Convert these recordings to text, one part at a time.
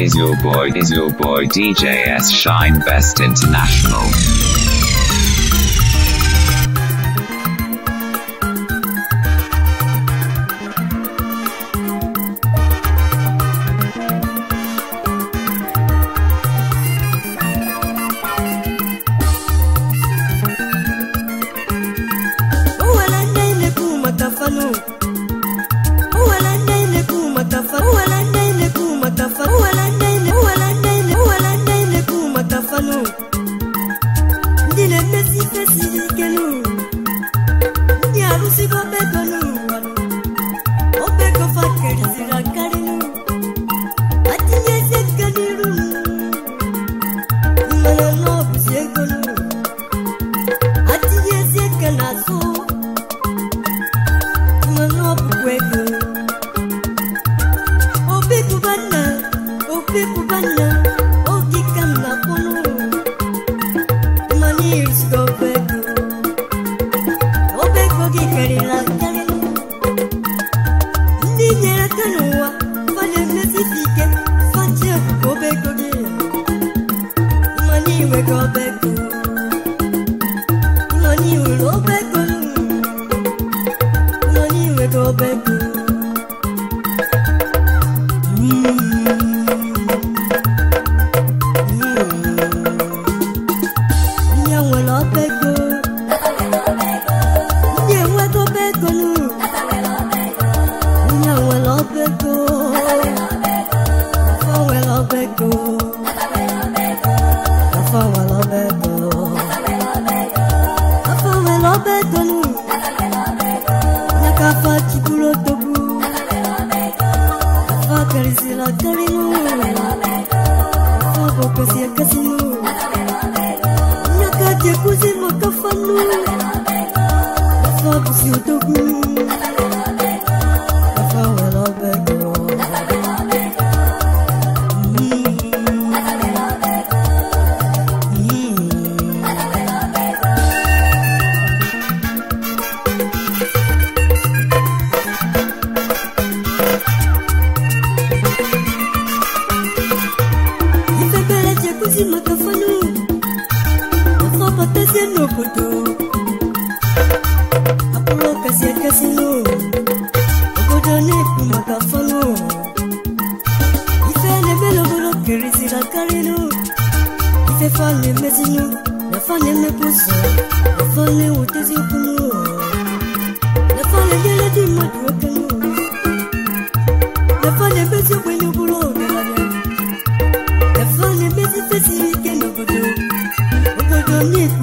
is your boy, is your boy DJS Shine Best International.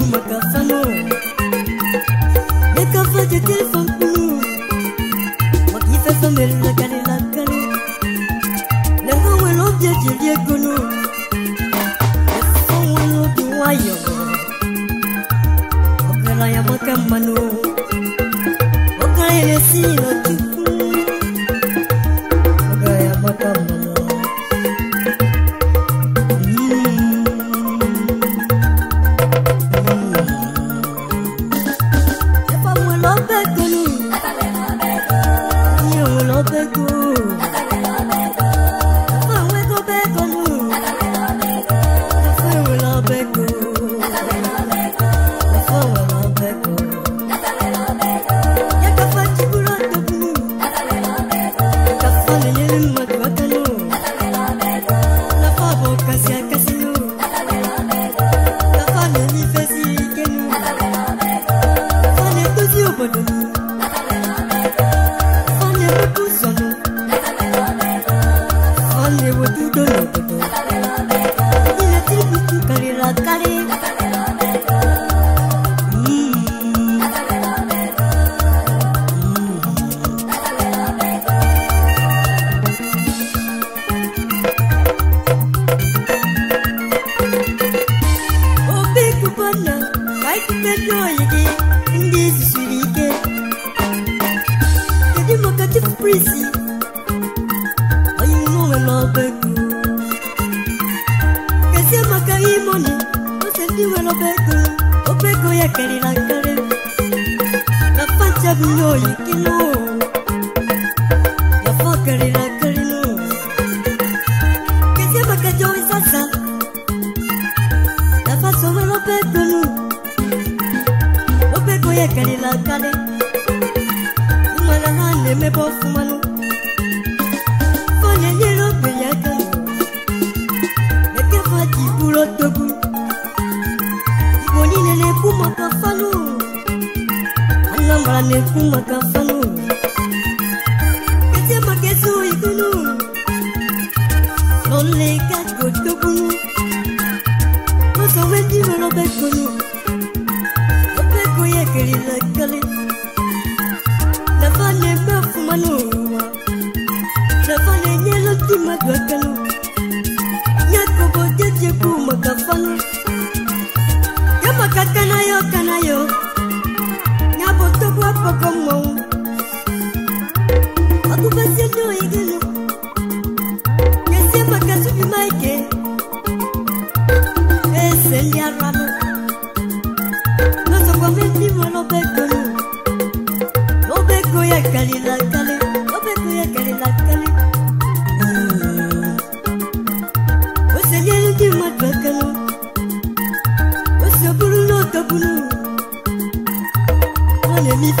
Makasano.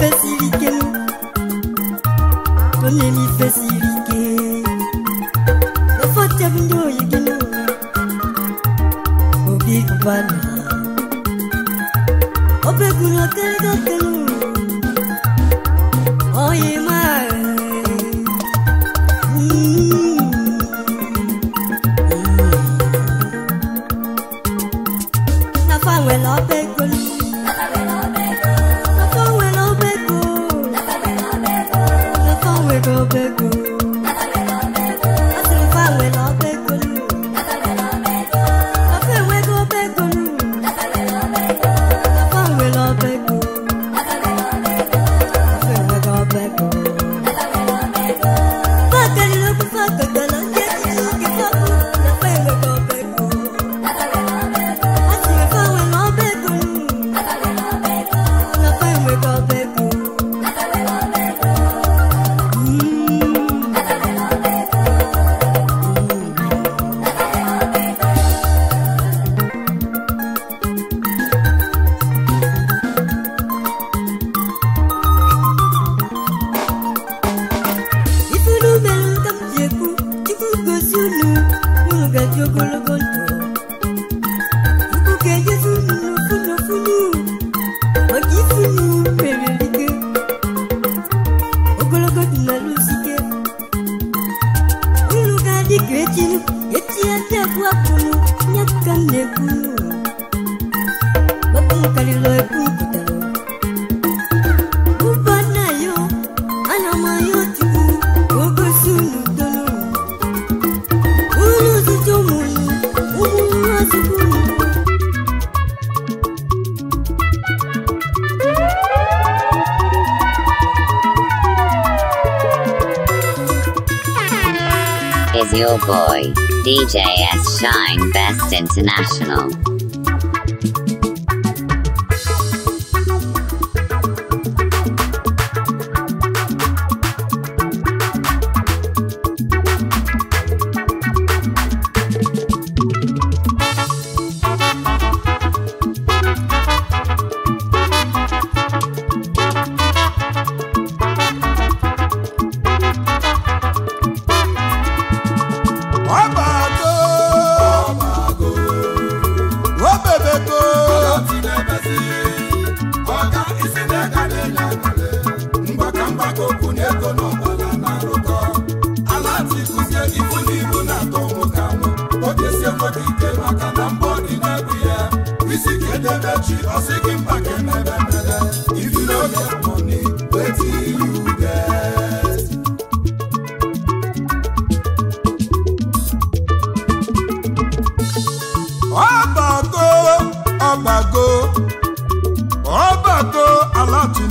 office. International.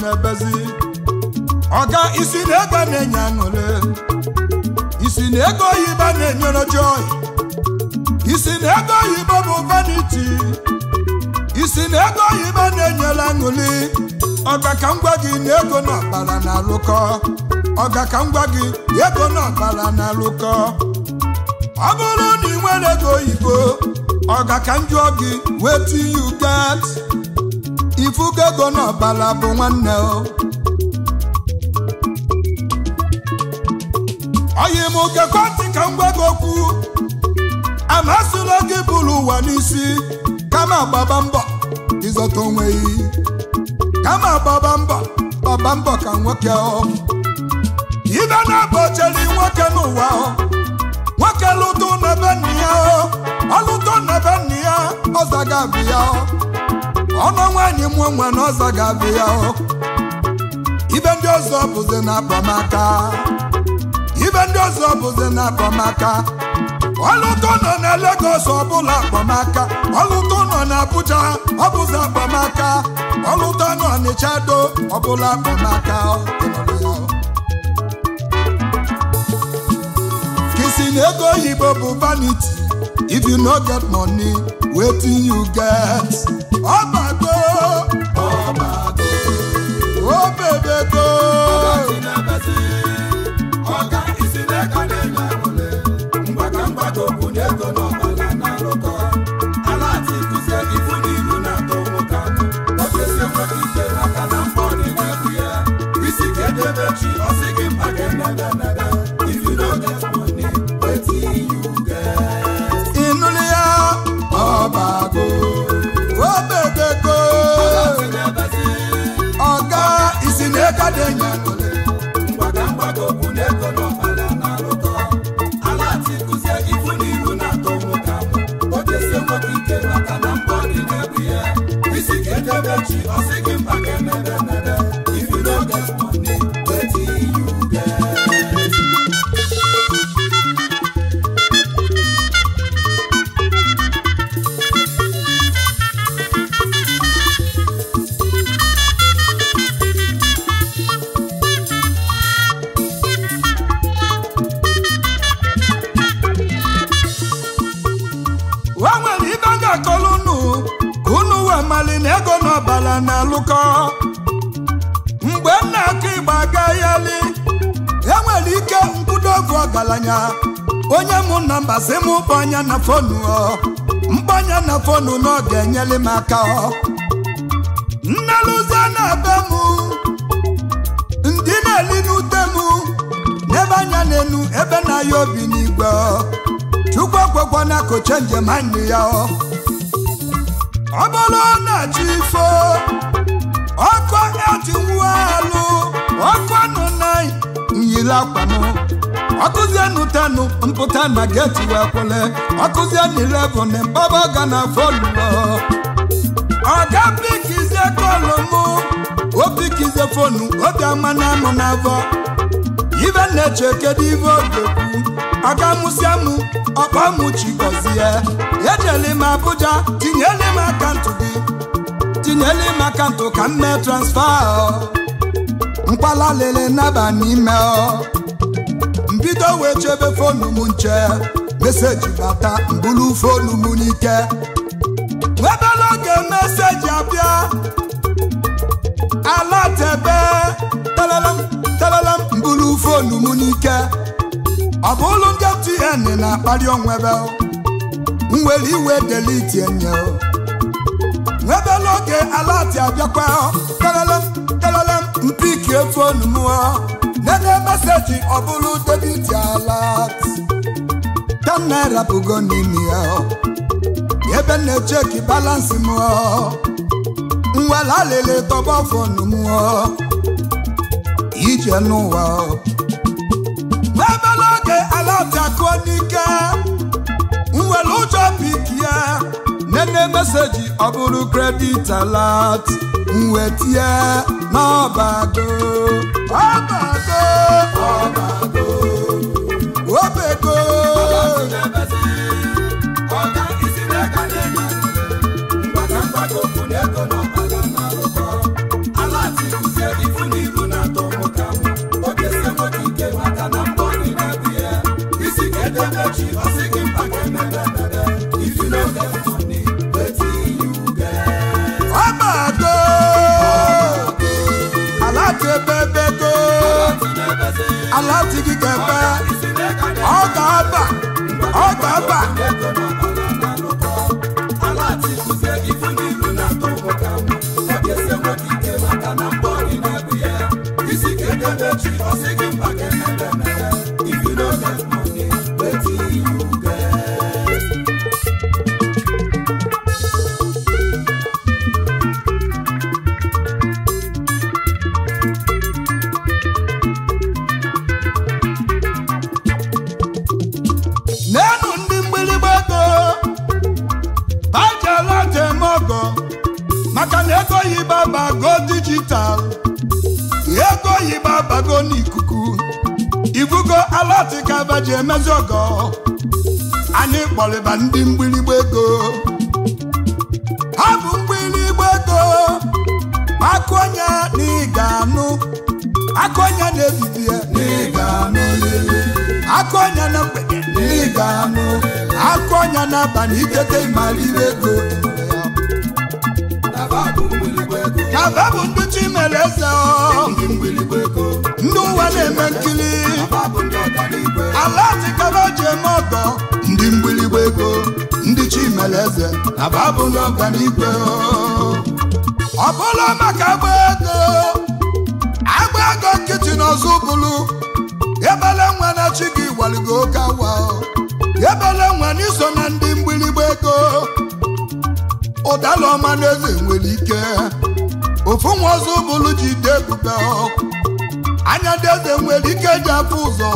na-ebezi ọga isi na ego na-enye aṅụle isi na ego oyibo na-enyere joy isi na ego oyibo bụ vanity isi na ego oyibo na-enyere aṅụli ọga ka m gwa gị na ego na ọbara na-alụkọ ọga ka m gwa gị ego na ọbara na-alụkọ ọ bụrụ na ị nwere ego oyibo ọga ka m jụọ gị wetin you get ifugo ego n'ọbala bụ nwanne o oyi m kekọtị ka m gwa gị okwu amasịla gị bụrụ ụwa n'isi kama gbaba mbọ ịzọta onwe gị kama gbaba mbọ gbaba mbọ ka nwoke ọ ibe na-abọcheli nwoke n'ụwa nwoke lụtụ n'ebe nna ya ọ lụtụ na be nna ya ọ zaga abụ ya ọnụ nwaanyị mụọ nwa n'ọzọ ga-abịa ya ibe ndị ọzọ bụzi na-apamaka ibe ndị ọzọ bụzi na-apamaka ọlụtọ nọ na Lagos ọbụla akpamaka ọlụtọ nọ na Abuja ọbụzi akpamaka ọlụtọ nọ n'Ịcha do ọbụla akpamaka kisi na ego oyibo bụ vaniti if you no get money wetin you get. fonu na fonu na ọ ga enyele m aka nnelụzọ na-ebe m ndị na-eli n'ute m n'ebe anya enu, ebe na-aya obi n'igwe chukwu ekwekwa na njem anyị ya ọ bụrụ na chi ifo ọkụ nwụọ alụ ọkụ nụ na nyiri akwa akụzienụ tenụ mpụta na geti wee kwele akụzienụ ilevụn baba ga na fọlụọ ọga pikizie kọlụ mụ o pikizie fonu obiọma na amụ na avọ ibe na-eche kedu ibe oge aga mụsịa mụ ọkpa mụchigọzie ejele m Abuja tinyele m akaụntụ gị tinyele m akaụntụ ka m mee transfa mkpalalele naba n'ime ọ mbido wee chebe fonu m nche meseji bata mbụrụ fonu m n'ike nwebela oge meseji abịa alatebe talalam talalam mbulu fonu m n'ike ọ bụ ụlọ ndị mtn na-akpali onwebe nwere iwe deliti enye nwebela oge alati abịakwa talalam talalam mpiki e m denye meseji ọ bụrụ debiti alat. ten naira bụgo n'ime ya ebe na-echeki balansị m nwere alele tọba fọnụ m ije n'ụwa n'ebe n'oge ala bịakụọ n'ike nwere ụjọ pik ya nene meseji ọ bụrụ kredit alat nwetie n'ọbago ọbago ọbago aláti kíkẹ́ pẹ́ ọgbà ọgbà ọgbà ọgbà. maazị ọgọ anyị kpọrịba ndị mgbịrịgba ego ha bụ mgbịrịgba ego akụọnya na n'ịga anụ onye na ebibi ya na ịga akụ onye na mgbede na ịga anụ onye na abalị ikete mara ire ego na ba bụ ndị chi mere eze ọ ndị ụwa na-eme nkiri ala tikaba ji eme ọgọ ndị mgbirigba ego ndị chimeleze ababụ n'ọganigwe ọ bụla maka agba ego agba ego nkịtị n'ọzọ bụlụ ebele nwa na chi gị waligo oke awa ebele nwa n'iso na ndị mgbirigba ego ụdala ọma na eze nwere ike ofu nwa ọzọ bụlụ ji dee ebubo anya ndị eze nwere ike ji afụ ụzọ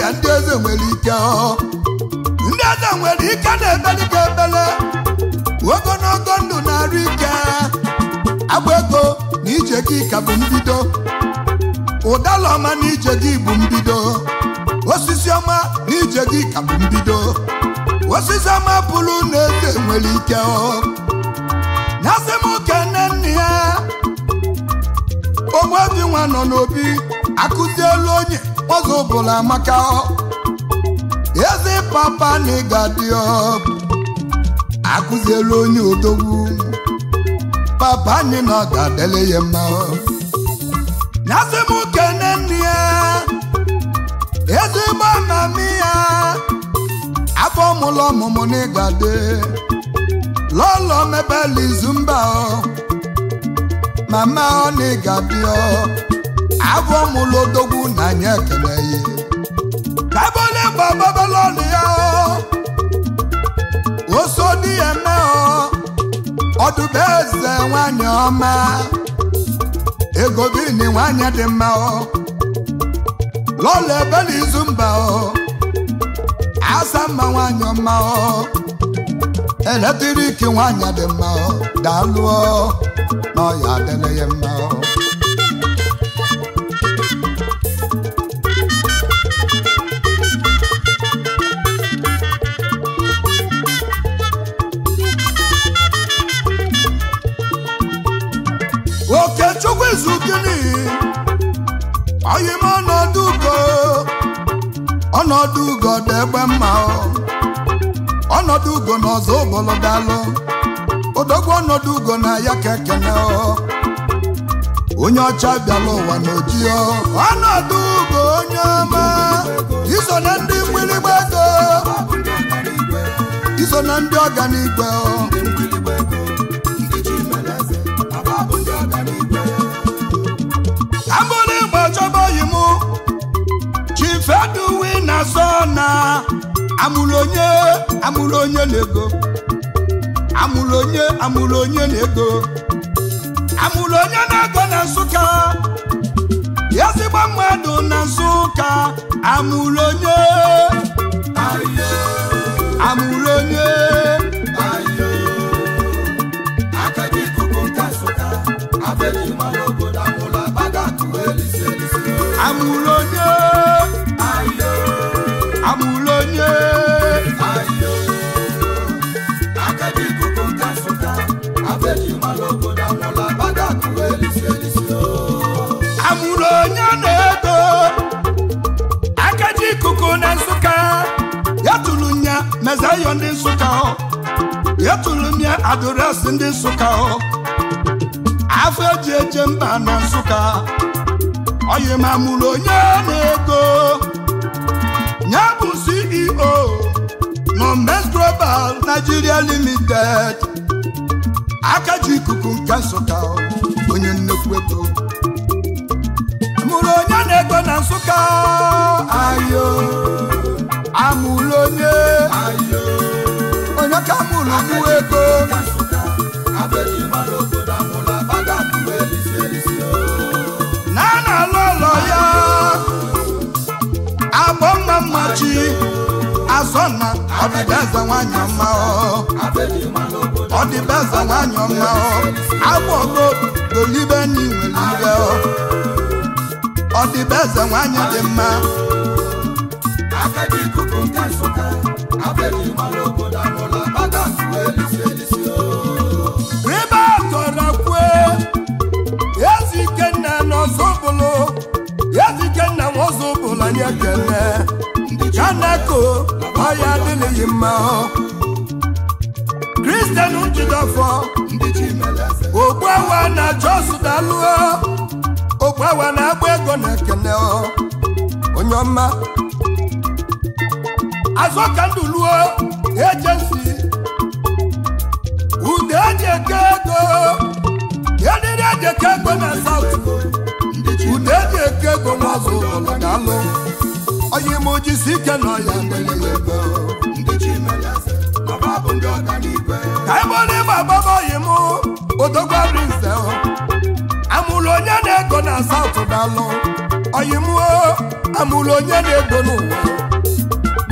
ya ndị eze nwere ike ndị eze nwere ike na ka ebele ogonogo ndụ na-arụ ike agba ego na ije gị ka bụ mbido ụdala ọma na ije gị bụ mbido osisi ọma na ije gị ka bụ mbido osisi ọma pụrụ na eze nwere ike na asị m oke nne nne ya onwedị nwa nọ n'obi akụzielu onye ọzọ bụla maka eze papa na ịga dị ọbụ akụzielu onye odogwu papa anyị na ọ ga-adịle ya mma nasị m kene nne ya ezigbo amami ya afọ ọmụlọ ọmụmụ na ịga dị lọlọ ala izu mba ọ mama ọ na-egabio abụọ mụlụ odogwu na anya ekele ya kabole bababala ọnụ ya oso dị ya eme ọdụbe eze nwanyị ọma ego bini nwanyị dị mma lọla ebe n'izu mba asa mma nwanyị ọma eletriki nwanyị dị mma daalụ ọya adịla ya mma Chukwu Izu ọ izugini oyim ọnọdụ ugo ọnọdụ ugo dị egbe mma ọnọdụ ugo na ọzọ ụbọlọdalụ ọgwọ ọnọdụ ugo na ya ka ekene onye ọcha bịala ụwa na ọnọdụ ugo onye ọma iso na ndị mgbịrịgba ego iso na ndị ọganigwe chọba oyi m chifeduwi na na amụrụ onye amụrụ onye na ego amụlụ onye amụlụ onye na-ego amụlụ onye na-ego na nsụka ezigbo mmadụ na nsụka amụlụ onye amụlụ onye amụlụ onye amụlụ onye ife ndị nsụka etulu m ya adụresị ndị nsụka afọ eji eje mba na nsụka oyi ma mụrụ onye na-ego ya bụ CEO Nomes Global Nigeria Limited aka ji ikuku nke nsụka onye nnekwu eto mụrụ onye na-ego na nsụka ayo amụlụ onye onye ka amụlụ bụ ego na a na-alụ ụlọ ya agbọ mma mmachi azọna ọdịbeza nwanyị ọma ọdịbeza nwanyị ọma agbọgo golibe n'iwe ọ ọdịbeza nwanyị dị mma agadi ikuku nke nsụka abịaghị mara obodo amụla aka suwe elisi elisi ebe a tọrọ kwue ezi ikenna n'ọzọbụlụ ezi ikenna nwaọzọbụlụ anyị ekele kanako ọya adịghị mma kristian njidọfọ ogbuawa na na agba ego na ekele onye Azụ ka azọkanduluo ejensi ude eji eke ego ediri eji eke ego na saut ude eji eke ego n'azụ ụlọ ga-alụ onye ime ojisi ike nọ ya ka ebona ịgba agbaba oyi m odogwa rinse amụrụ onye na-ego na South dalụ oyi m amụrụ onye na-ego n'ụwa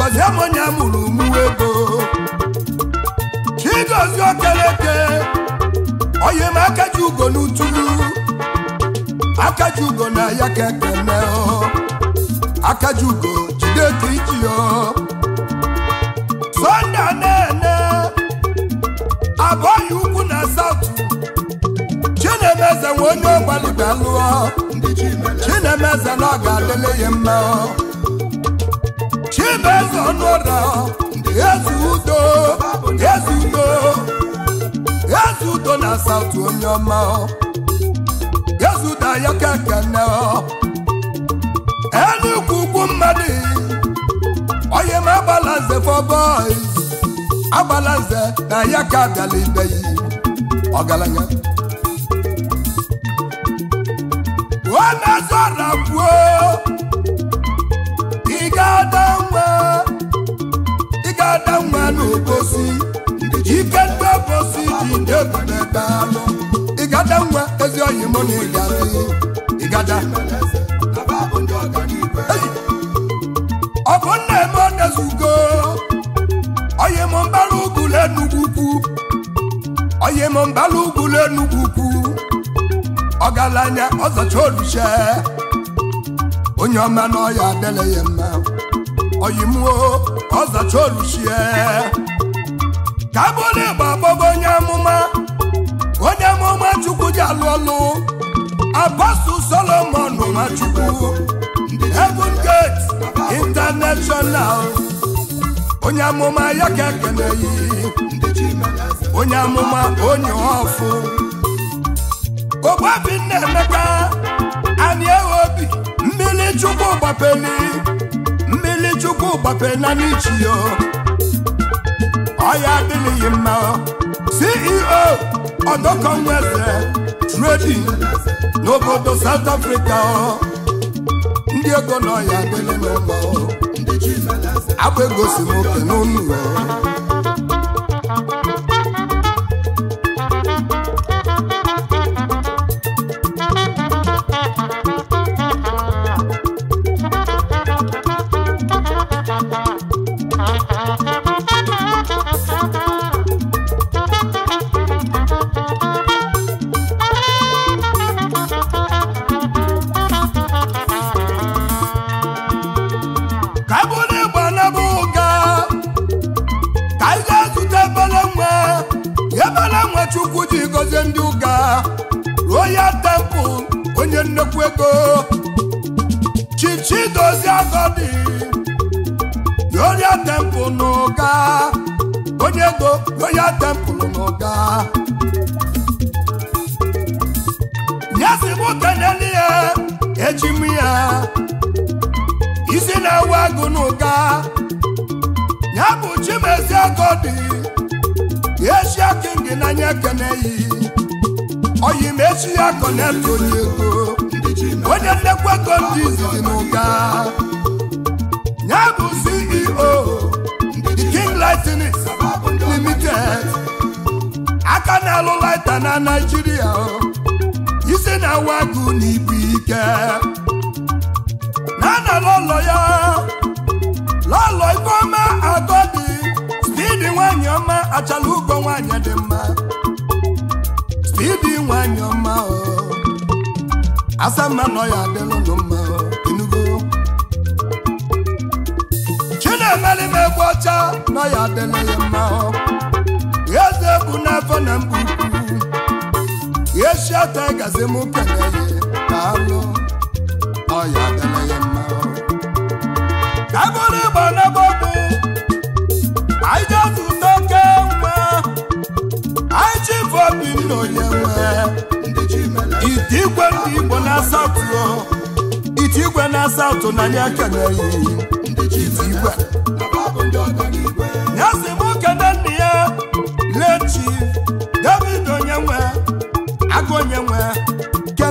Ngozi Emonia mụrụ mụwa ego Chigozie Okeleke onye m aka ji ugo n'utulu aka ji ugo na ya ka ekene aka ji ugo jide ka iji Sonde na-ene abụọghị ukwu na saụtụ Chinemeze nwe onye lụọ. Chinemeze na ọ ga-adịle ya mma ibeze eze udo eze udo eze udo na saụtụ onye ọma eze udo ayakakene mmadụ onye m agbala nze fọbọi agbala na ya ka ị ga-ada Ibadanwa nwa Ikemba Obosi ji ndị egwu na-ebe alụ Igadanwa ezi oyi mụ na ịgazi Igada Ọgụ nna-eme ọ na-ezugo Oyi mụ mbara ugwu l'Enugwu ukwu Oyi mụ mbara ugwu l'Enugwu ukwu Ọgaranya ọzacha oluche onye ọma na ọya adịla ya mma oyi mụọ ọzacha oluchie ka abụrụ ịgba agbọgo onye amụma onye amụma chukwu ji alụ ọlụ apọstụl solomon nwachukwu heaven gate international onye amụma ya ka ekeneghị onye amụma onye ọfụ ogbobi nna emeka anyị ewe obi mmiri chukwu gbapeli chukwu na n'ichi yo ọya adịghị mma CEO nweze tredin n'obodo South Africa ndị ego na ọya adịghị mma abụ egosi nwoke n'ụlọ ike na na lọlọ ya lọlọ ifeọma agọdị stidi nwanyị ọma achala ugo nwanyị dị mma stidi nwanyị ọma mma nọ ya mma enugo egbe ọcha nọ ya adịla mma eze bụ n'afọ na mba ukwu na-alụ ọya adịla ya mma ka bụrụ na asatọ na asatọ na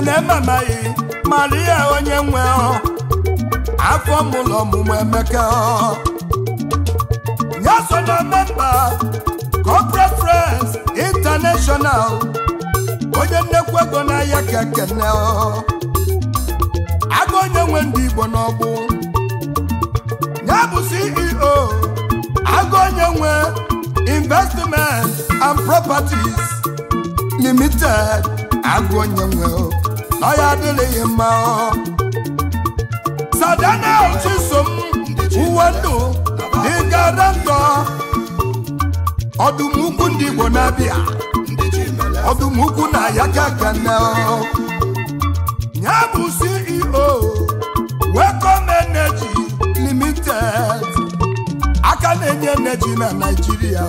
na ichena mara maria onye nwe afọ mụlọ ọmụmụ emeka ya so na memba corporate friends international onye nnekwu ego n'ahịa ka ekene agụ onye nwe ndị igbo n'ọgbụ nye bụ ceo aga onye nwe investment and properties limited agụ onye nwe ọya adịlịghị mma Sadanel Chisom uwe ndụ dịgara ndọ ọdụm ukwu ndị Igbo na-abịa ọdụm ukwu na ya gagana ya bụ CEO Welcome Energy Limited aka na-enye energy na Naịjirịa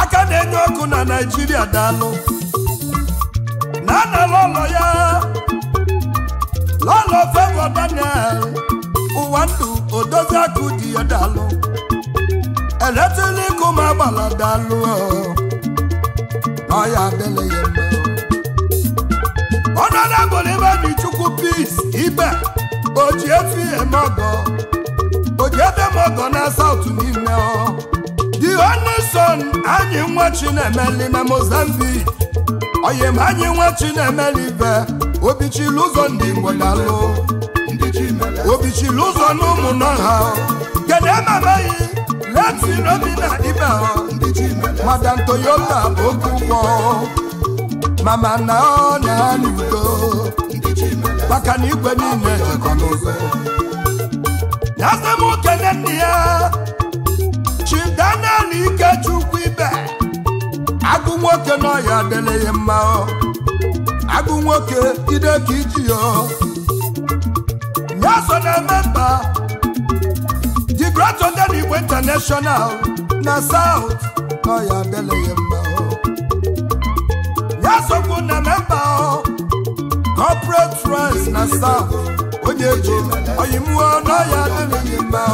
aka na-enye ọkụ na Naịjirịa daalụ anala ụlọ ya lọlọ favour Daniel ụwa ndụ odozi akụ dị ya dalụ eletrik ụmụ agbala dalụ na ọya adịla ya mma ọnọdụ agbụrụ ibe dị chukwu peace ibe oji efi eme ọgọ oji ebe m ọgọ na saụt niile ọ the only son anyị nwa Chinemeli na Mozambique oyimanyị nwa chinemelibe obichili ụzọ ndị ngwelelụ obichili ụzọ na ụmụnọ ha kedu leti n'obi na ibe madam toyota bụ oke ụgwọ mama na ọ na anị udo maka na igwe niile jikọ n'ụzọ Na-asị m okene nne ya chidana na ikechukwu agụ nwoke n'ọhịa adịlịghị mma agụ nwoke ide ka iji ya nyeso na-eme mba digratonde na igwe international na saut n'ọhịa adịlịghị mma nyesokwu na mmemba corporate rice na saut onye ji oyimụọ n'ọhịa adịlịghị mma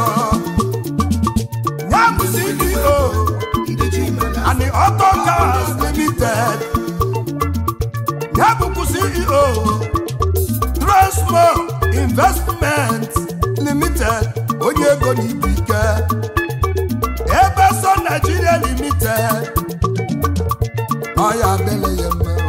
Autogas Limited ya CEO Transmo Investment Limited onye ego n'ibu ike Ebeso Nigeria Limited ọ ya adịla ya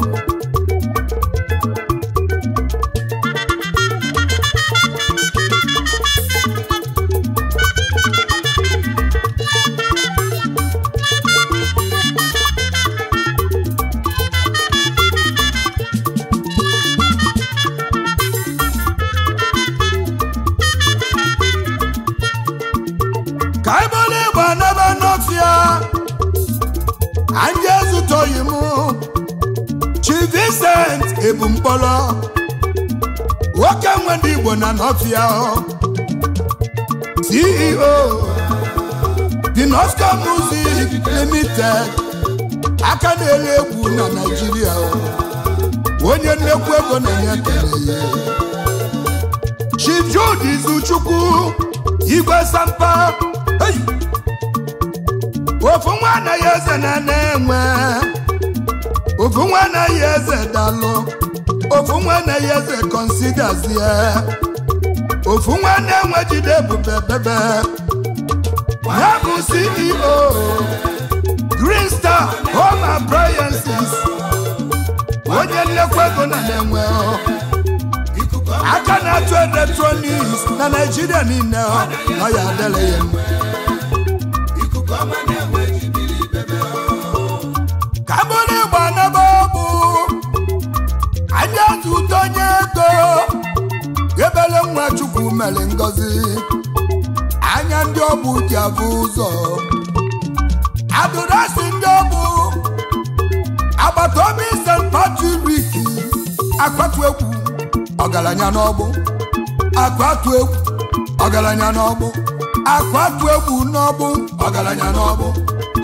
North CEO The North Star Music Limited aka na egwu na Naịjirịa onye nnekwu ego na-enye ekele ya Chief Jude Izuchukwu Igwe Sampa ofu nwa anaghị eze na na-enwe ofu nwa anaghị eze dalụ ofu nwa anaghị eze konsidazie ofu nwanne nwe jide ebube bebe ya bụ CEO Green Star Home Appliances onye nlekwa ego na na-enwe aka na-atụ eletrọniks na Naijiria niile ọ ya adịla ngọzi anya ndị ọbụ ji abụ ụzọ adụrasị ndị ọbụ agbata obi St. Patrick akwatu egwu ọgaranya n'ọbụ. akwatu egwu ọgaranya n'ọbụ. akwatu egwu n'ọgbụ ọgaranya n'ọgbụ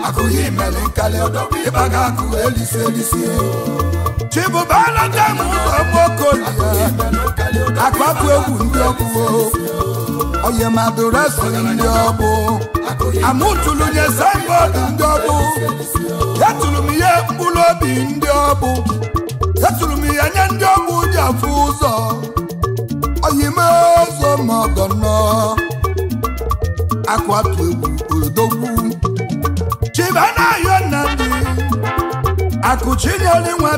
akụghị imere nkali ọdọbụ ịba ga-akụ elisi elisi e. chibụbana dem ụzọ mokolia akwatu egwu ndị ọbụ onye madurasi ndị ọgbụ. amụtụlụ nye signboard ndị ọgbụ. etụrụ ihe mkpụrụ obi ndị ọbụ etụrụ ihe nye ndị ọbụ ji afụ ụzọ oyime ụzọ ma ọgọ nọ akwatu egwu odogwu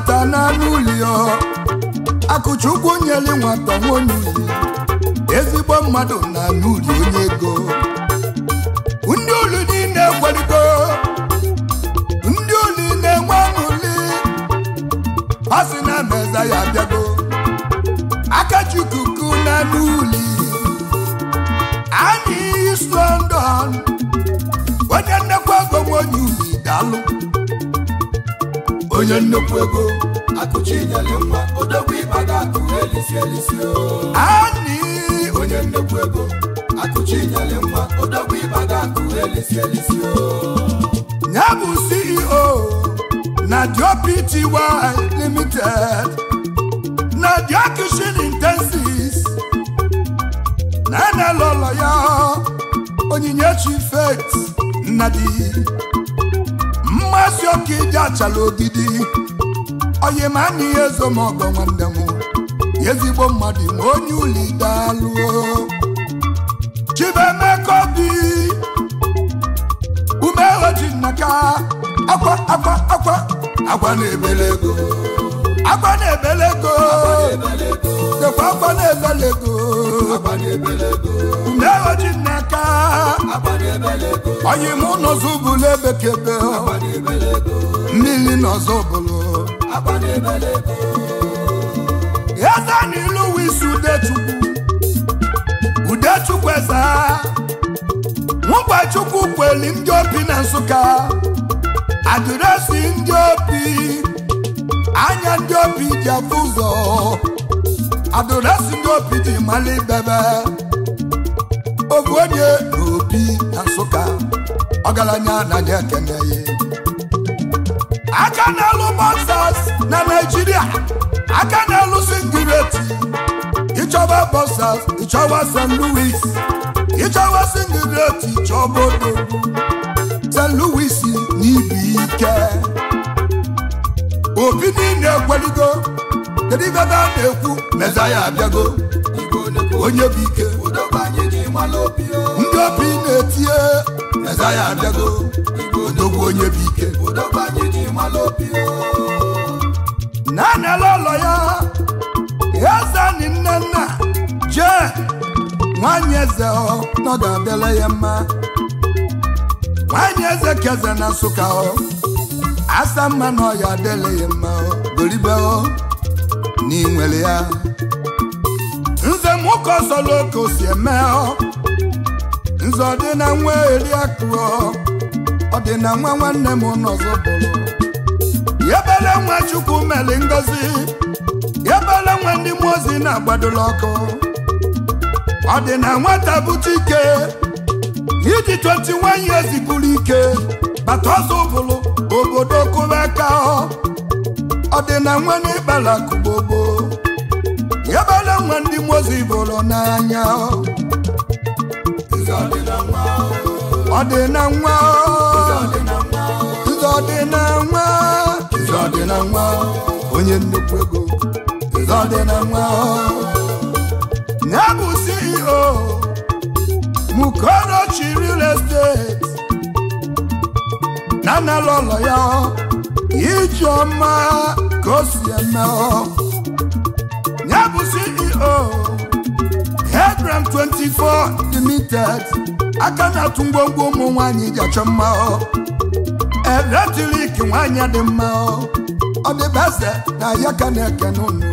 nwata n'anụ ụlọ ezigbo mmadụ na n'ụlọ onye ego ndị olu niile kwaligo ndị olu na-enwe aṅụli a sị na meza ya abịago akachukwu na n'ụli anyị iso ndụ onye nnekwu ego onye uli daalụ onye nnukwu ego akụchi nyere mma odogwu ịba ga-akụ elisi elisi okwu ego akụchi nyere nwa ịba ga akụ elisi elisi ya bụ CEO na Dio Pty Limited na Dio Kitchen Intensives na enelọlọ ya Onyinyechi Faith Nnadi mmasị ọka ịdị achala ogidi oyimana ihe ezo ma ọgọ nwanne m ezigbo mmadụ ma onye ulidalụo bi. Obi umehojinnaka akwa akwa akwa akwa na-ebele ego akwa na-ebele ego dekwa akwa na-ebele ego umehojinnaka oyimụ n'ọzọ bụlụ ebekebe mmiri n'ọzọ ego. Eze n'ilu wisi Udechukwu Udechukwu eze Nwụgbachukwu kweli ndị obi na Nsụka adresi ndị obi anya ndị obi ji afụ ụzọ adịresi ndị obi ji mara ibebe onye na Nsụka ọgaranya anaghị ekene ya aka na-alụ na Naịjirịa aka na-alụsi ngwireti ịchọba bọsas ịchọba St. Louis ịchọba singireti ịchọba odo St. luis n'ibi ike obi niile ekweligo kedu ibe a na-ekwu mezaya abịago onye bụ ike ndị obi na-etinye mezaya abịago odogwu onye bụ ike naanị anala ụlọ ya ezeni nne nna jee nwanyị eze nọdụ adịla ya mma nwanyị eze keze na nsụka asa mma na ọya adịla ya mma doribe na n'inwere ya nze nwoke ọsọla oke o si eme nze ọ dị na nwa eri akụ ọ dị na nwa nwanne m n'ọzọ bụrụ yebele nwa chukwu mere ngozi ebele nwa ndị mmụọ ozi na agbadolo ọkụ ọ dị na nwata bute ike iji 21 years bụrụ ike bata ọsọ ụbụlụ obodo kụba aka ọ dị na nwa n'ịkpala kụgbogbo yebele nwa ndị mmụọ ozi bụrụ n'anya ọ dị na nwa ọ dị na nwa dị na nwa onye nnukwu ego dị na nwa ya CEO Mukorochi real estate na nala ụlọ ya ọma ka o si eme ọ. bụ CEO Hebron 24 Limited aka na-atụ ngwongwo ụmụ nwaanyị ji achọ mma eletrik nwaanyị dị mma ọ dị beze na ya ka na-eke n'ụlọ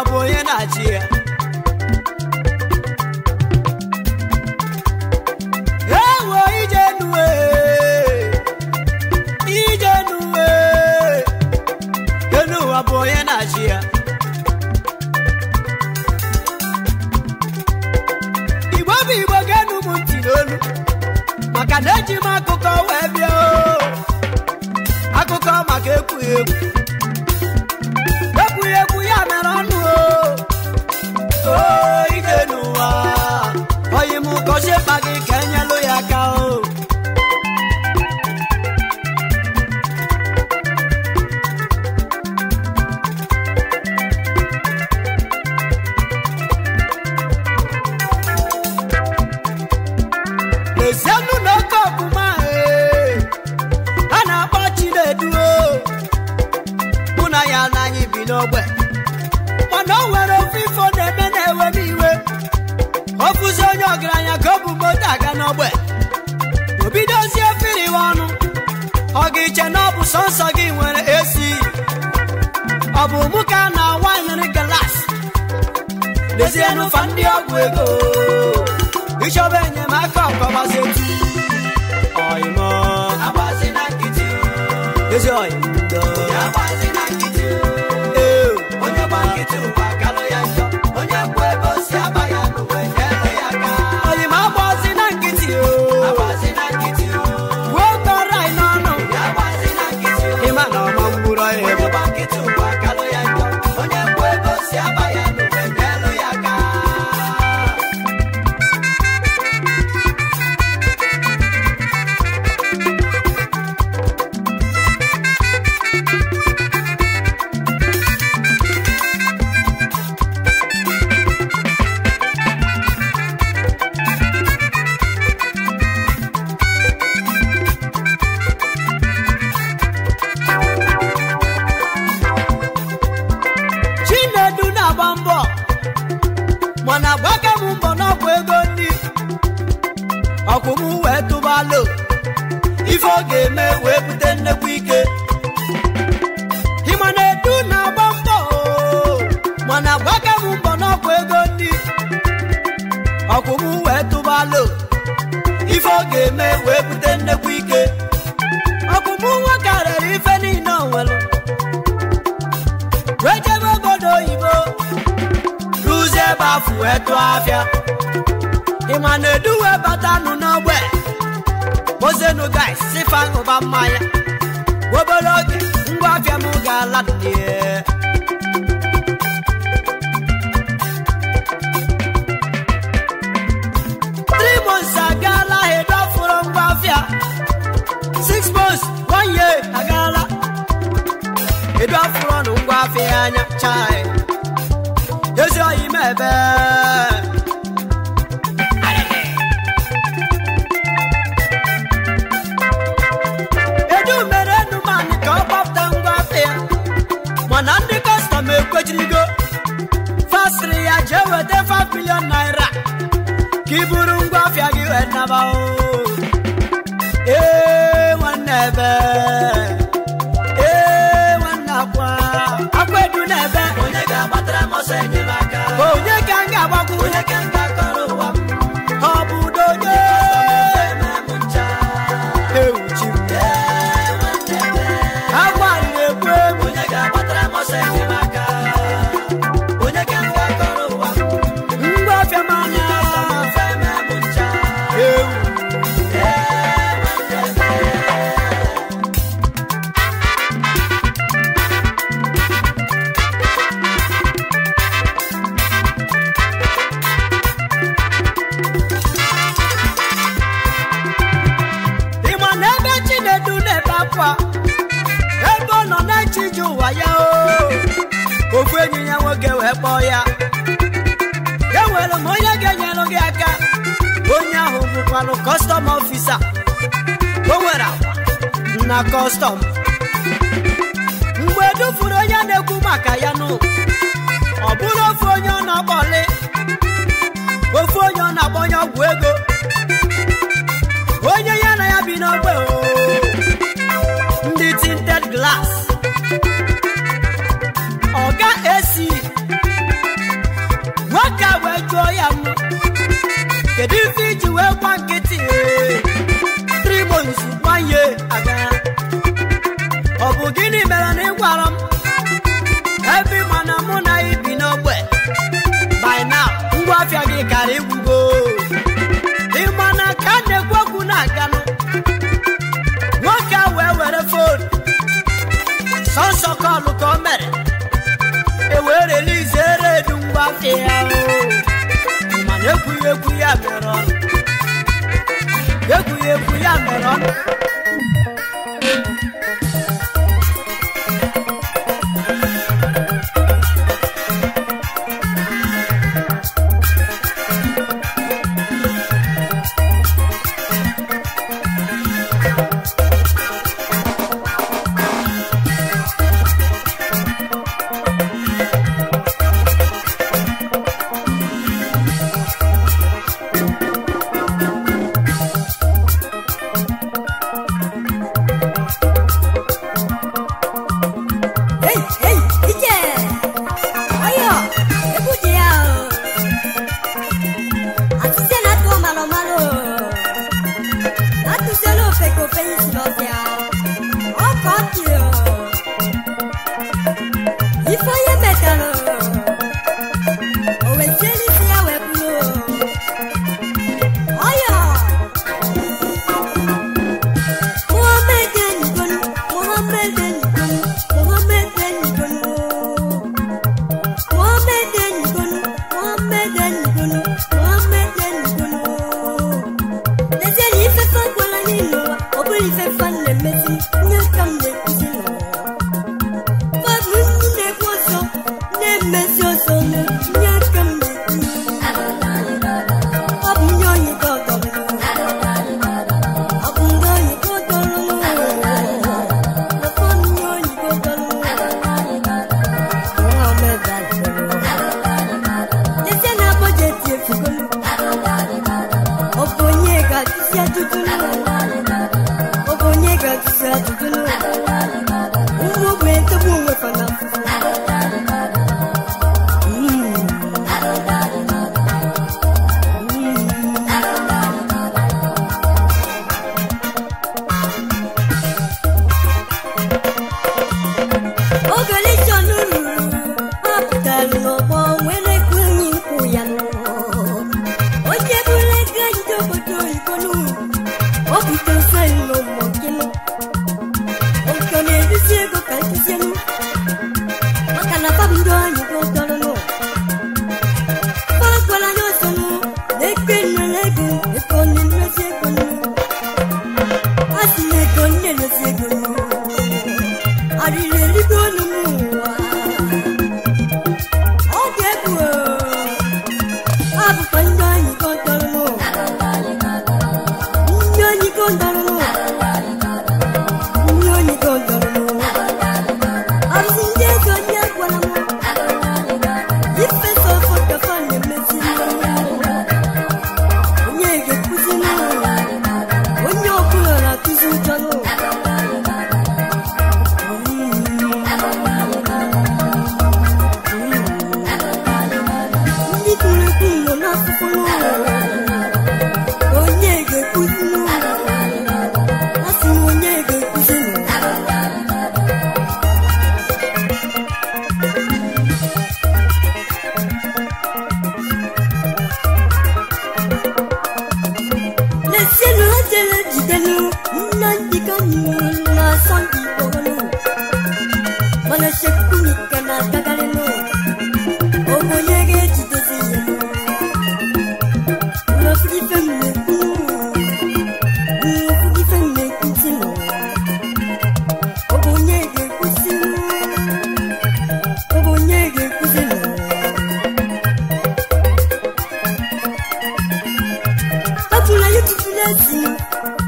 ọ bụ onye na-achị ya ewo ije nuwe ije nuwe enu ụwa bụ onye na-achị ya igbo bụ igbo ga-enu m ntị n'olu maka na eji m akụkọ wee bịa akụkọ maka ekwughị ekwu 些把给。edu afọ ọnụ ngwa afọ anya chai ezi oyi m ebe edu mere enu mani ka ọ gbapụta ngwa afọ ya mana ndị kọstọm ekwejirigo ya jee weta 5 milion naira ka i buru ngwa afịa gị wee naba o ¡Gracias! malụ kọstọm ọfisa o na kọstọm mgbe dufuru onye na-ekwu maka ya nụ ọ bụrụ ofu onye ọ na-akpọli ofu onye ọ na-akpọ onye ọgwụ ego onye ya na ya bi n'ogbe oke ya mana egwuregwu ya mere ọnụ egwuregwu ya mere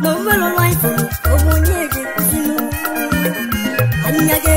mo mẹ́rọ láìpẹ́ ọmọ ní èdè sínú àníyàgẹ́.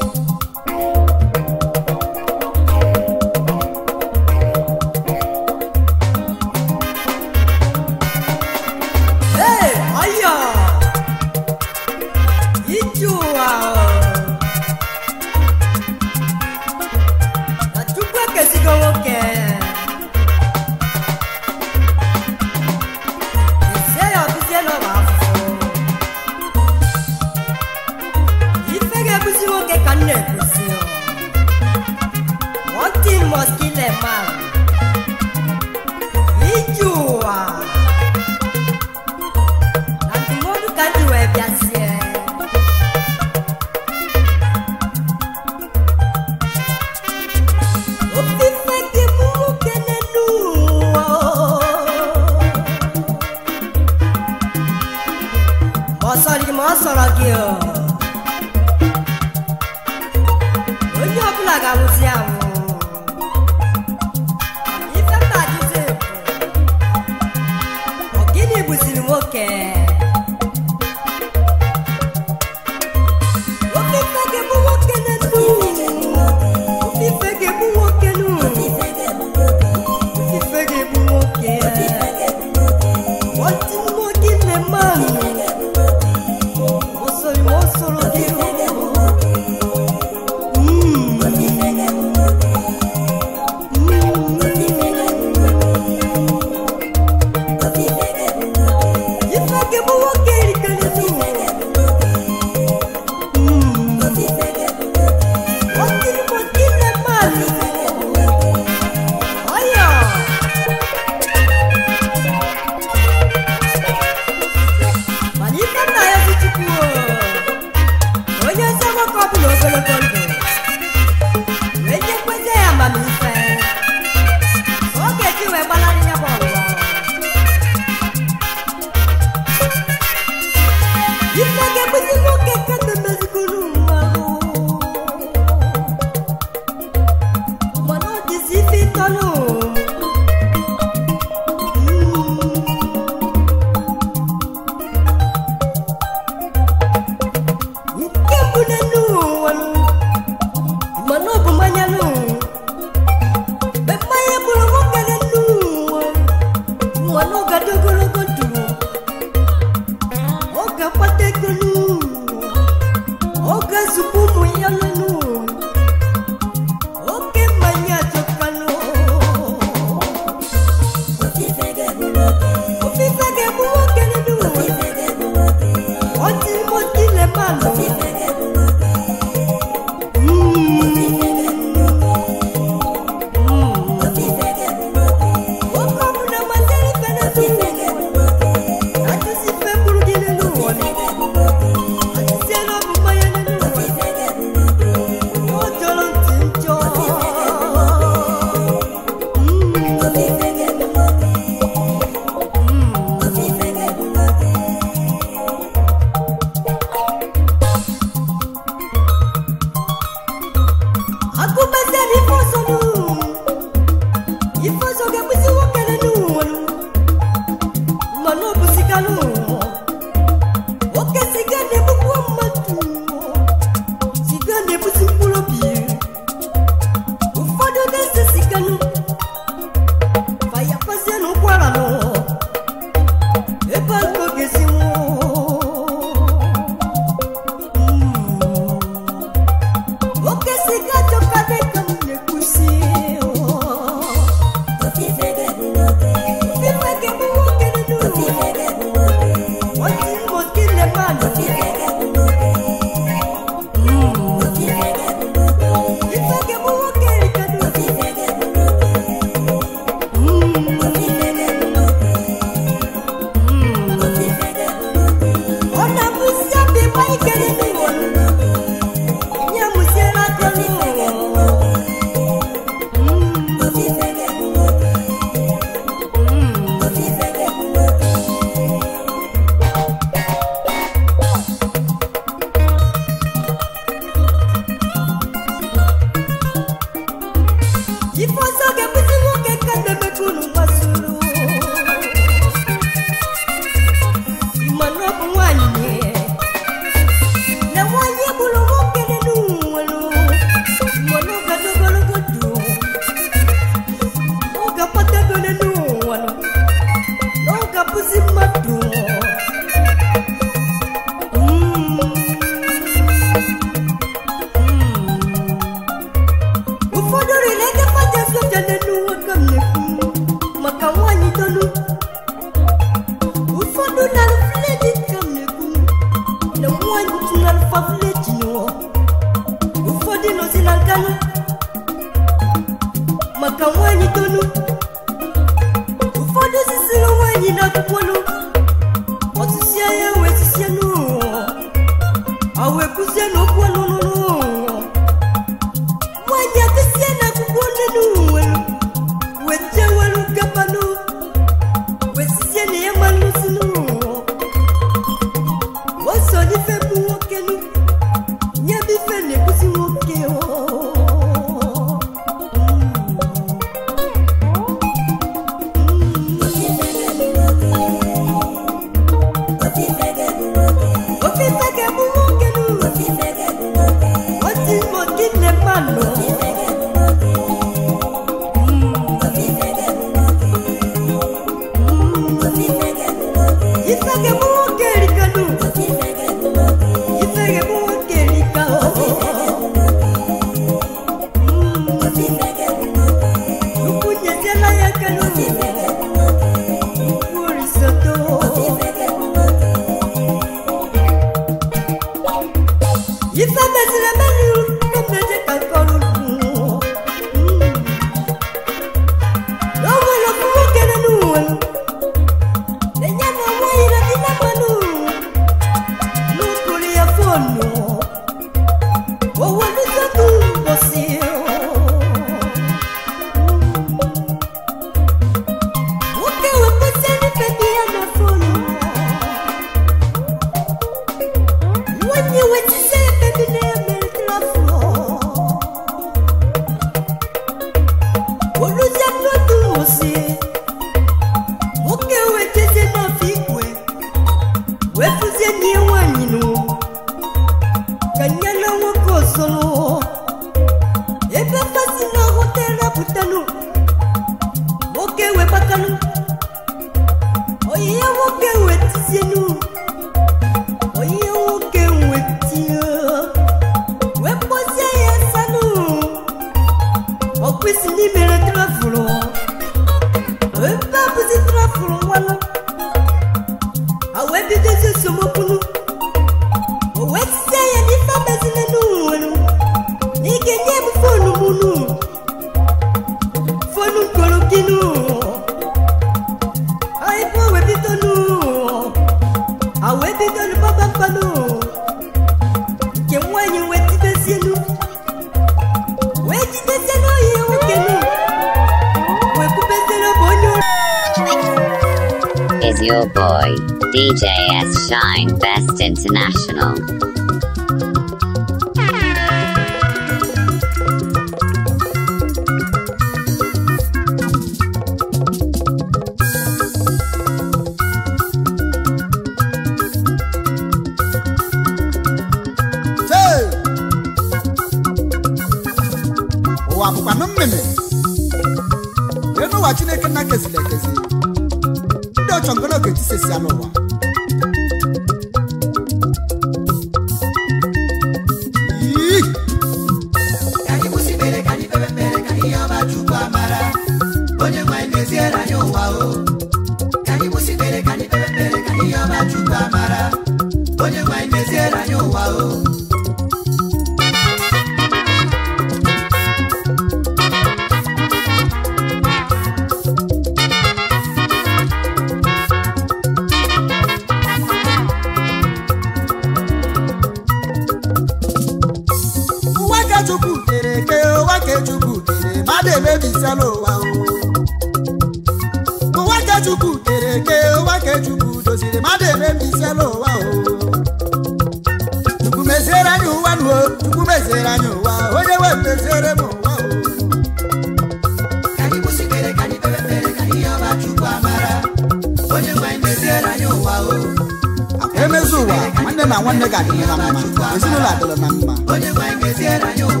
nwanne gị adịla na mma ezinụlọ adịla na mma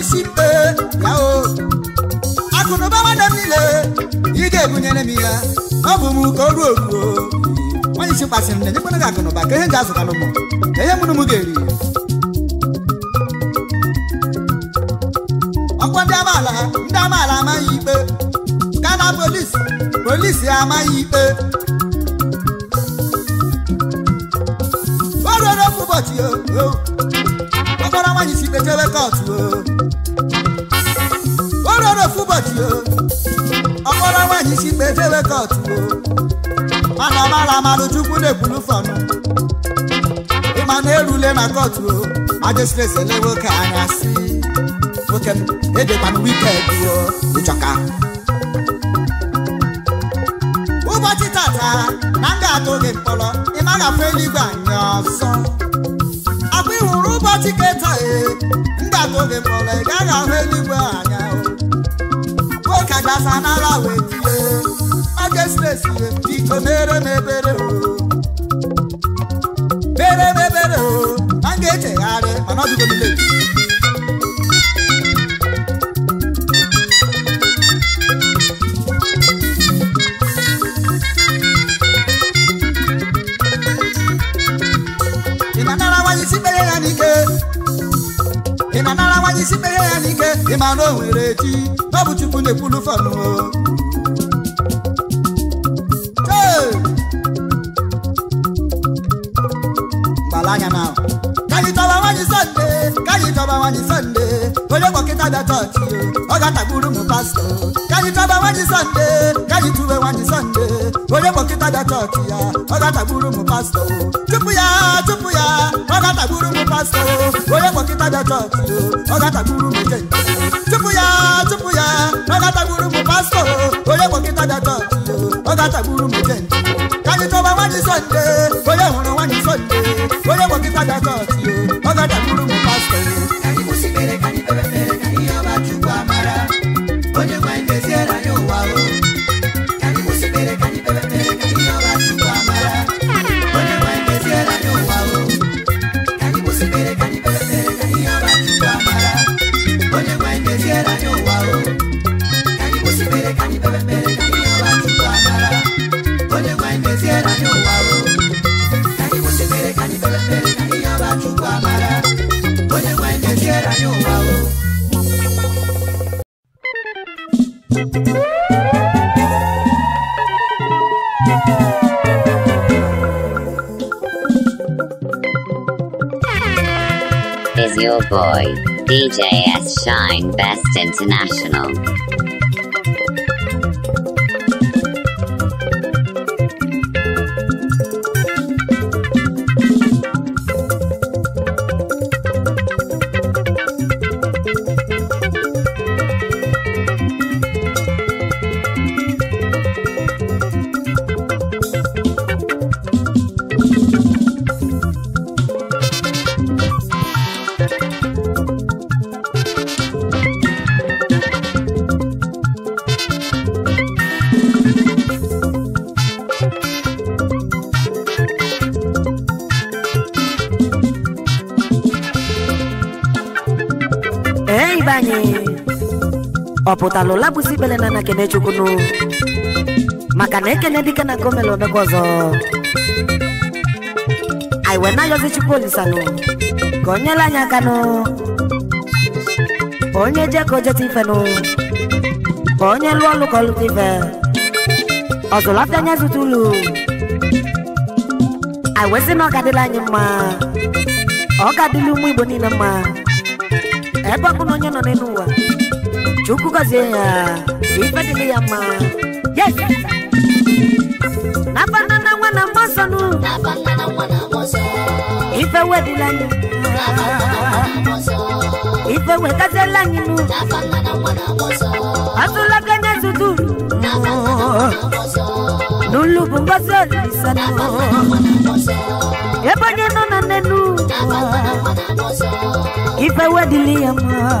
isi mpe ya o akụnụba nwanne m niile ị ga-ebunyere m ya ọ bụ m ka o ruo oruo nwanyị isi kpasị na-enyekwana gị akụnụba ka ihe m azụtara azụtalụ m na ihe mụrụ m ga-eri ọkwa ndị amaala ndị amaala amaghị ikpe ka na polisi polisi amaghị ikpe o ruo n'ofu ụbọchị o kpọkpọrọ nwaanyị si ikpe kọtụ o lọ́rọ̀ fún bọ̀dì o ọkọ lọ́wọ́ yìí sí pé fẹ́wẹ́ kọ̀ọ̀tù o máramára máa lójú kúlẹ̀ kúlú fọ̀nù ìmọ̀nà erule na kọ̀ọ̀tù o adéṣiṣẹ́ lẹ́wọ́ kàánà sí oke m èdè mmanụ wíkẹ́ẹ̀dì o ìjọka. ụbọchị tata na m ga-atụ gị mkpọrọ ị maghị afọ eluigwe anya ọzọ akwa ịhụrụ ụbọchị keta ee m ga-atụ gị mkpọrọ ị gaghị ahụ eluigwe anya ọdasa n'ala wee tie aga stesi mere ebere mere o a ga-echegharị mana ọ dịgo ị na-anara nwanyị isi mere ya n'ike ị ma na ọ bụ chukwu na-ekwulu fanụ na chọba nwanyị sọnde chọba nwanyị sọnde onye kpọkịta bịa chọọchị nwanyị sọnde nwanyị ya ọ ga-atagburu m pastọ DJ S. Shine Best International. pụtara ụla bụzi ikpere na Ekene Chukwunu maka na ekene dike na gomel omekwa ọzọ anyị wee na-ayọzi Chukwu olisanụ ka o aka nụ onye je ka o jeta ife nụ ka onye lụọ ọlụ ka ọ lụta ife ọzụlata anya zụta ụlọ anyị wee na ọ ga anyị mma ọ ga-adịla ụmụ Igbo niile mma ebe ọkụ na onye nọ n'elu ụwa chukwu gọzie ya ife dịrị ya mma nabanana nwa na mmasọnụ ife wedịla anyị ife wetaziela anyị nụ atụlago nye zudu n'ụlọ bụ ngozi olisanụ ebe onye nọ na nnenu ife wedịla ya mma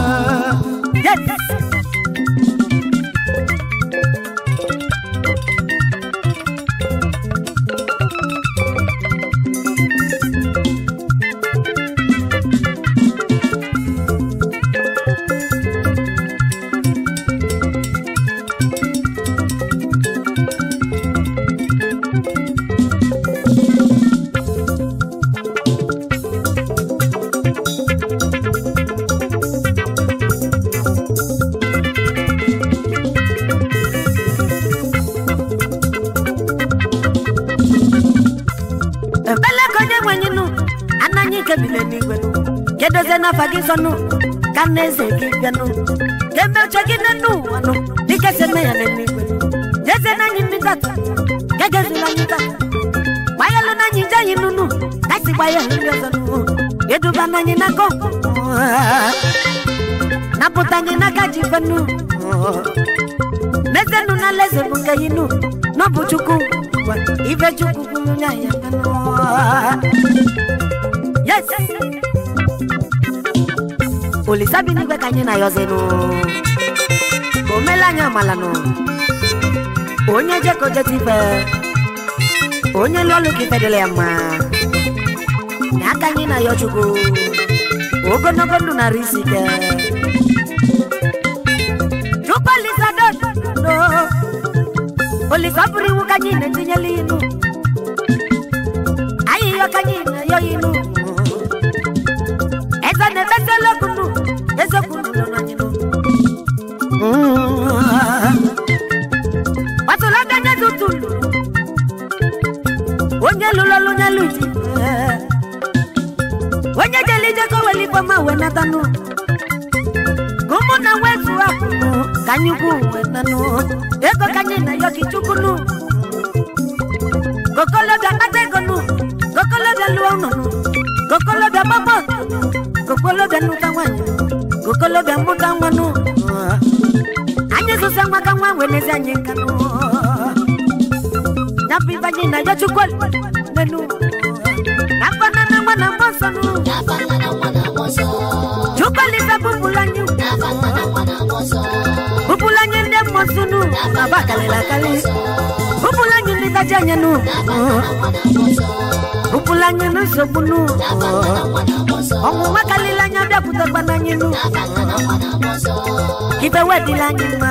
afa gị ka na eze gị gị eme ya jeze mmiri ya na napụta anyị n'aka ji mezenụ na bụ nke polisi abinigwe ka anyị na-ayọzenụ omela anyị amalanụ onye jeko ife onye lụọlụ ka ife dịla ya mma n'aka anyị na-ayọ chukwu ogologo ndụ narị polisi ọ bụrụ iwu ka anyị na-etinyela inu ọtụlaka nye tutulu onye lula onye lụji onye jeli jekọ weli fọma wenatanụ ka ụmụnna wetu apụnụ ka anyị ukwu wenanụ ego ka na yoki chukwunu kokolobịa kpata ego nụ da lụọ nụ kokolobịa gbapọ kokolobịa nụta nwaanyị kokolobịa mụta nwanụ weenezi anyị nka ya bụ ibe anyị nenu na akpana na nwa na mgba nsọ chukwulibe bụbụrụ anyị anyị ndị mmụọ nu anyị ndị anya nu bụbụrụ anyị nsogbu karịrị Ibe wedila nyuma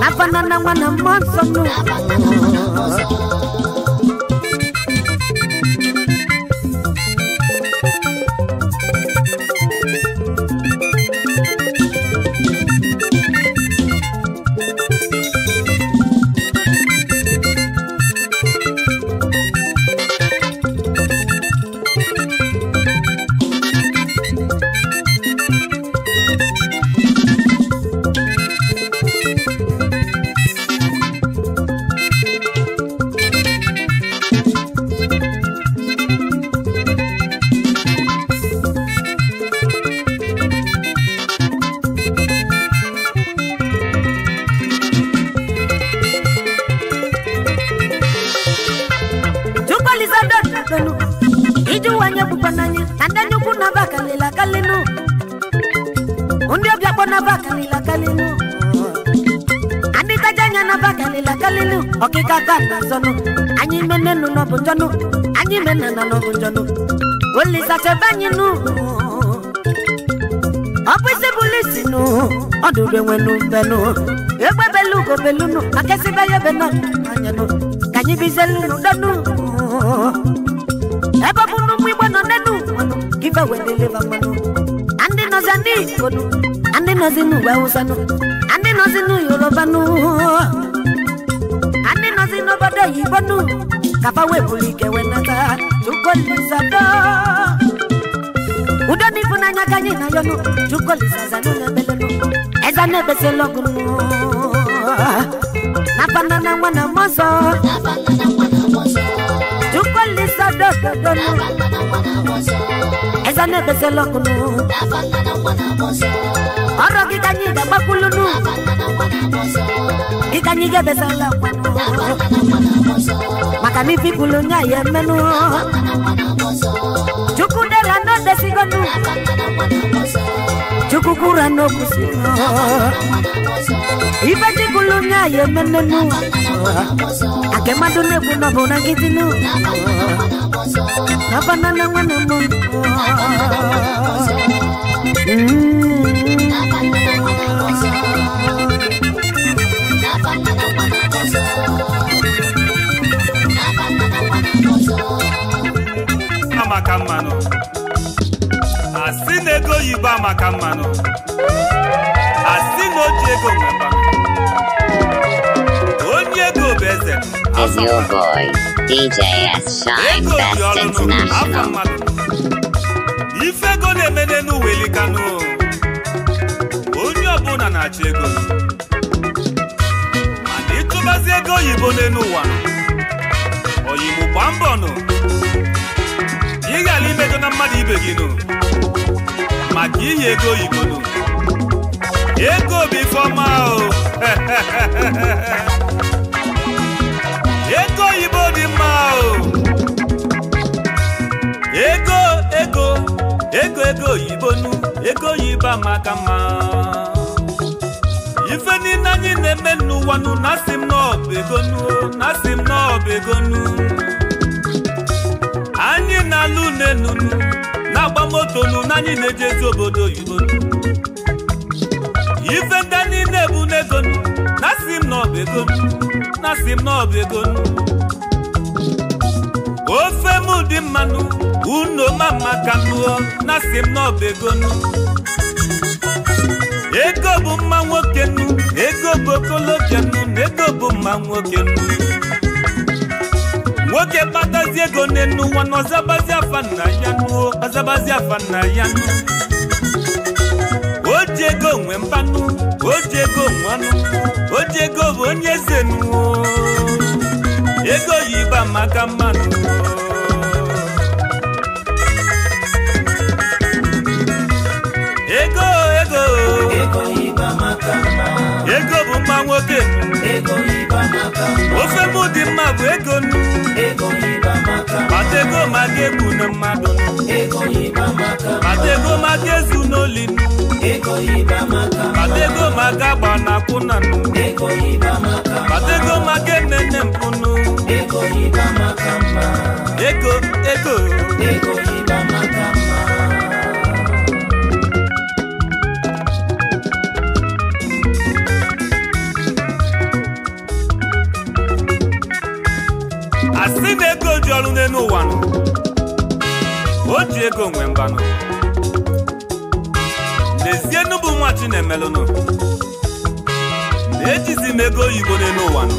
Nafanana mwana mwanzo nu mmadụ benwenu benu egbe belugo belunu makesibe ya beno anyenu ka anyị bizelunu denu ebe bụ na ụmụ igbo nọ nenu gibe wedeleva mmanụ na ndị nọzi ndị igbodu na ndị nọzi n'ugbo awụsanụ na ndị nọzi n'uyorobanụ na ndị nọzi n'obodo oyibonu kaba weburu ike wenata chukwolizado udo n'ifunanya ka anyị na yọnụ chukwolizazanụ na ebele Ọza na-ebezela ọgụ n'abana na na mọzọ na-ebezela anyị ga n'ụlọ ika anyị ga-ebesala maka na ifipụlụ nye ya emenụ chukwu dere na odesigonu chukwu kwuru n'okwusi ife chikulu nye ya emenenu ake mmadụ na-ekwu na ọbụ na maka mmanụ asị na ego oyibo amaka mmanụ asị na oji ji ego nweba onye ego bụ eze ego bi ọlụnụ afọ mmadụ ife ego na-eme n'elu welikanụ onye ọbụla na-achọ ego mana ịchụbazi ego oyibo n'elu ụwa oyibo gba mbọ nụ na mmadụ ibe gị nụ maka inye ego oyibo nụ ego bụ ifeọma ọ ego oyibo dị mma ọ ego ego ego ego oyibo nụ ego oyibo amaka mma ife niile anyị na-eme n'ụwa nụ na m na ọ bụ ego nụ na asị m na ọ bụ ego nụ anyị na-alụ unenunu na-agba moto nunu anyị na-eji ezi obodo oyibo ife ndị niile bụ n'ego na si m na ego na si m na ego ofe m dị mmanụ unu ma mma ka nụọ lụọ na si m ego ego bụ mma nwoke nnu ego bụ okolobịa na ego bụ mma nwoke nnu nwoke kpatazi ego nne n'ụwa na ọzabazi afa afọ ya nuo ọzabazi afa nna ya nu o ego nwe mpanụ o ego nwe ọnụ ego bụ onye ego yi maka nwoke ofe mụ dị mma bụ ego mata ego maka egbu na mmadụ mata ego maka ezu n'oli mata ego maka agba na akwụna mata ego maka emene mpụnụ ego ego ọrụ n'elu ụwa nụ o ji ego nwe nọ n'ezie n'ụbụ nwa chinemelụnụ na-ejizi m ego oyibo n'elu ụwa nọ,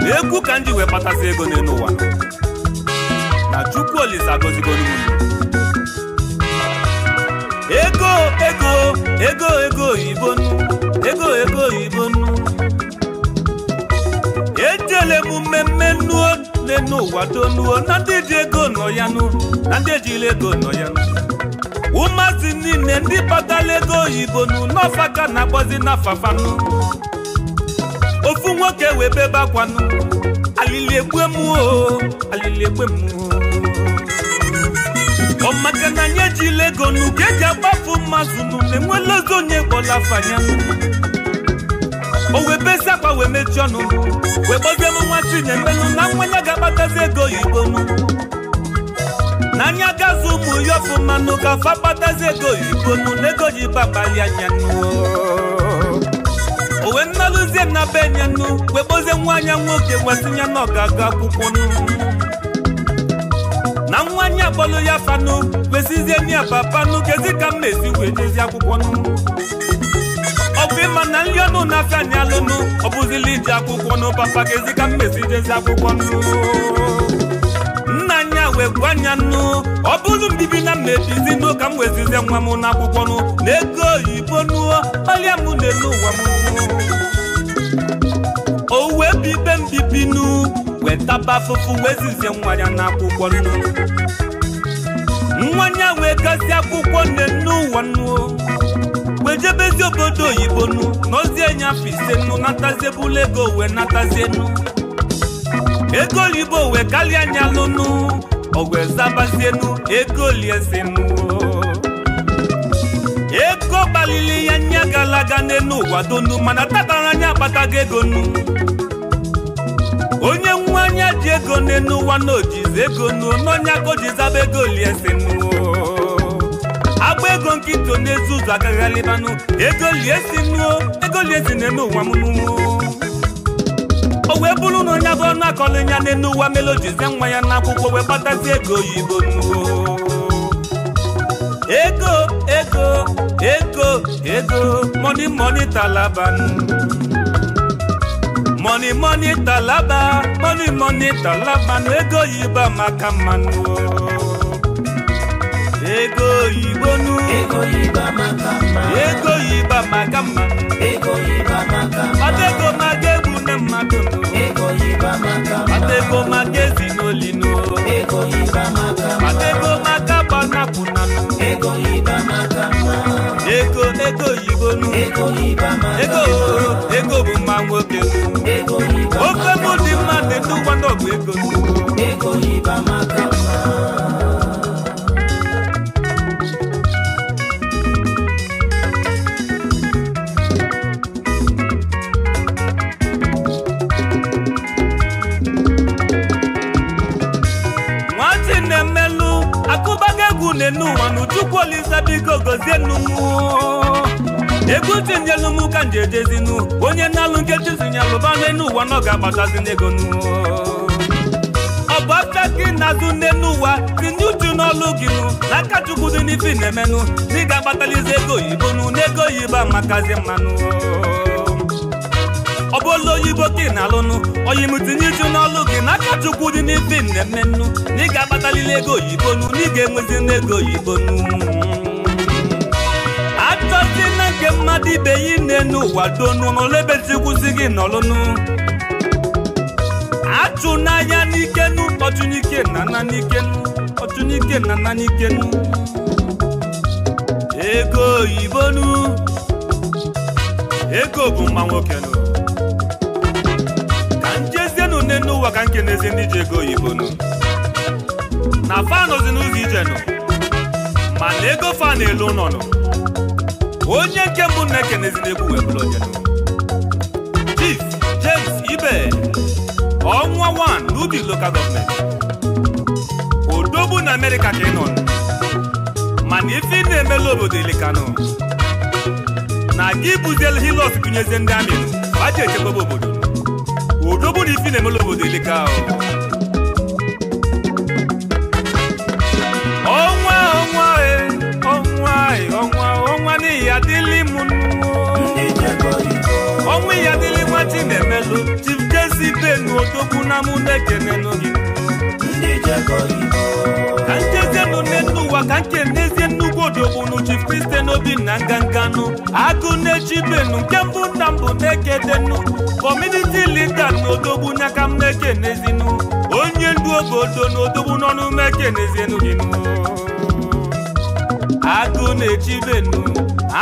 na-ekwu ka ndị ji wee kpatasị ego n'elu ụwa nọ, na chukwu olisa gozigolu ego ego ego ego oyibo ego ego oyibo ejele m mmemme nnu niile n'ụwa tonuo na ndị ji ego nọ ya nụ na ndị ejiri ego nọ ya nụ ụmụazị niile ndị kpatara ego oyibo nụ n'ọfaka na-akpọzi agbazi n'afafanụ ofu nwoke wee bebe akwanụ alili egbe m alili egbe m ọ maka na nye ji ego nụ ka eji agbafu mmazụ nụ na enwela ozi onye kpọla afanya o wee bezi akwa wee mechie ọnụ wee gbazie m nwa chinye mmenụ na mmanya ga-akpatazi ego oyibo m n'anya gazi ụmụ ya ọfụmanụ ka fa kpatazi ego oyibo nụ na ego ji babali anya o wee nnalụzie na be nye nụ wee gbozie nwa anya nwoke nwesịnya na ọ akwụkwọ nụ na nwa anya akpọlụ ya fanụ wesizie n'iya papanụ kezi ka m na-esi wee jezi akwụkwọ nụ mmiri mana nri ọnụ na-afịa anyị alụnụ ọ bụzili iji akwụkwọ nụ papa ga-ezi ka mmezi jezi akwụkwọ nụ nna anya wee gwa anya nụ ọ bụrụ mbibi na mmebizi nụ ka m wezizie nwa m n'akwụkwọ nụ na ego oyibo nụọ ọrịa m na-elu ụwa m o wee bibe mbibi nụ wetaba afụfụ wezizie nwa ya n'akwụkwọ nụ nwa ya wee gazie akwụkwọ nne n'ụwa nụọ mejebezi obodo oyibo nu n'ozi enye afọ ise nu natazie bụla ego wee natazie nu ego oyibo wee karịa anya lụnụ ogwe zabazienu ego liezinu ego gbalili ya nya galaga aga n'elu ụwa donu mana tatara anya akpatago ego nu onye nwa anya ji ego n'elu ụwa na ojizi ego nu n'ọnya ka o ego zaba ego agba ego nkịtị onye ezi ụzọ agaghị alịbanụ ego liesi nnuo ego liesi na-eme ụwa m n'ụwa o wee bụrụ na onye bụ na akọlụ ya n'elu ụwa melojizie nwa ya n'akwụkwọ wee kpatazi ego oyibo nnuo ego ego ego ego moni moni talaban moni moni talaba moni moni talaban ego oyibo amaka mmanụ ego oyibo ego oyibo maka mma ego oyibo egwu mma ego oyibo amaka mma ọta mmadụ ego oyibo maka mma ọta ego maga mma maka gbanapụ na ego mma ego ego ego ego bụ mma nwoke mma ofe mụ dị mma dị ndụ ego ego maka. ọsa biko ka nji ejezinu onye na-alụ nkechi zinyalụba n'enu ụwa na ọ ga-agbatazi n'ego nu ọ bụ gị na-azụ n'enu ụwa n'ọlụ gị chukwu dị na dị ga-agbatalizi ego oyibo n'ego oyibo amakazi mmanụ ọ bụ oyibo ka ị na-alụnụ n'ọlụ gị chukwu dị na na ị ga-agbatalili ego oyibo na ị ga-enwezi n'ego oyibo mmadụ ibe ya nne n'ụwa donu n'olebezikwuzi gị n'ọlụnụ achụ n'anya n'ikenu ọtụnike nana n'ikenu ọtụnike nana n'ikenu ego oyibo oyibonu ego bụ mma nwokenu ka njezienu nne n'ụwa ka nke na-ezi ndị ji ego oyibo oyibonu na fanụzi n'ụzọ ijenụ mana ego fa na-elu nọ nụ. onye nke mbụ na-ekenezina egwu wee bụrụ onye Chief James Ibe ọnwa 1 n'ubi local gọọmenti odogbu na Amerịka ka ị nọ mana ife ị na-emela obodo ilikanụ na gị bụzielu hilọs gụnyezi ndị amị baji echekwaba obodo odogbu na ife ị na-emela obodo ilika ahụ igwenu odogwu na mụ na-ekenenu gị ka nchezie nụ n'elu ụwa ka nke ndezie nnukwu odogbunu chief kristen n'obi na nganganụ agụ na-echibenu nke mbụ nna mbụ na-ekedenu kọmuniti lida na odogbu n'aka m na onye ndu obodo na odogbu n'ọnụ m ekenezienu gị agụ na benu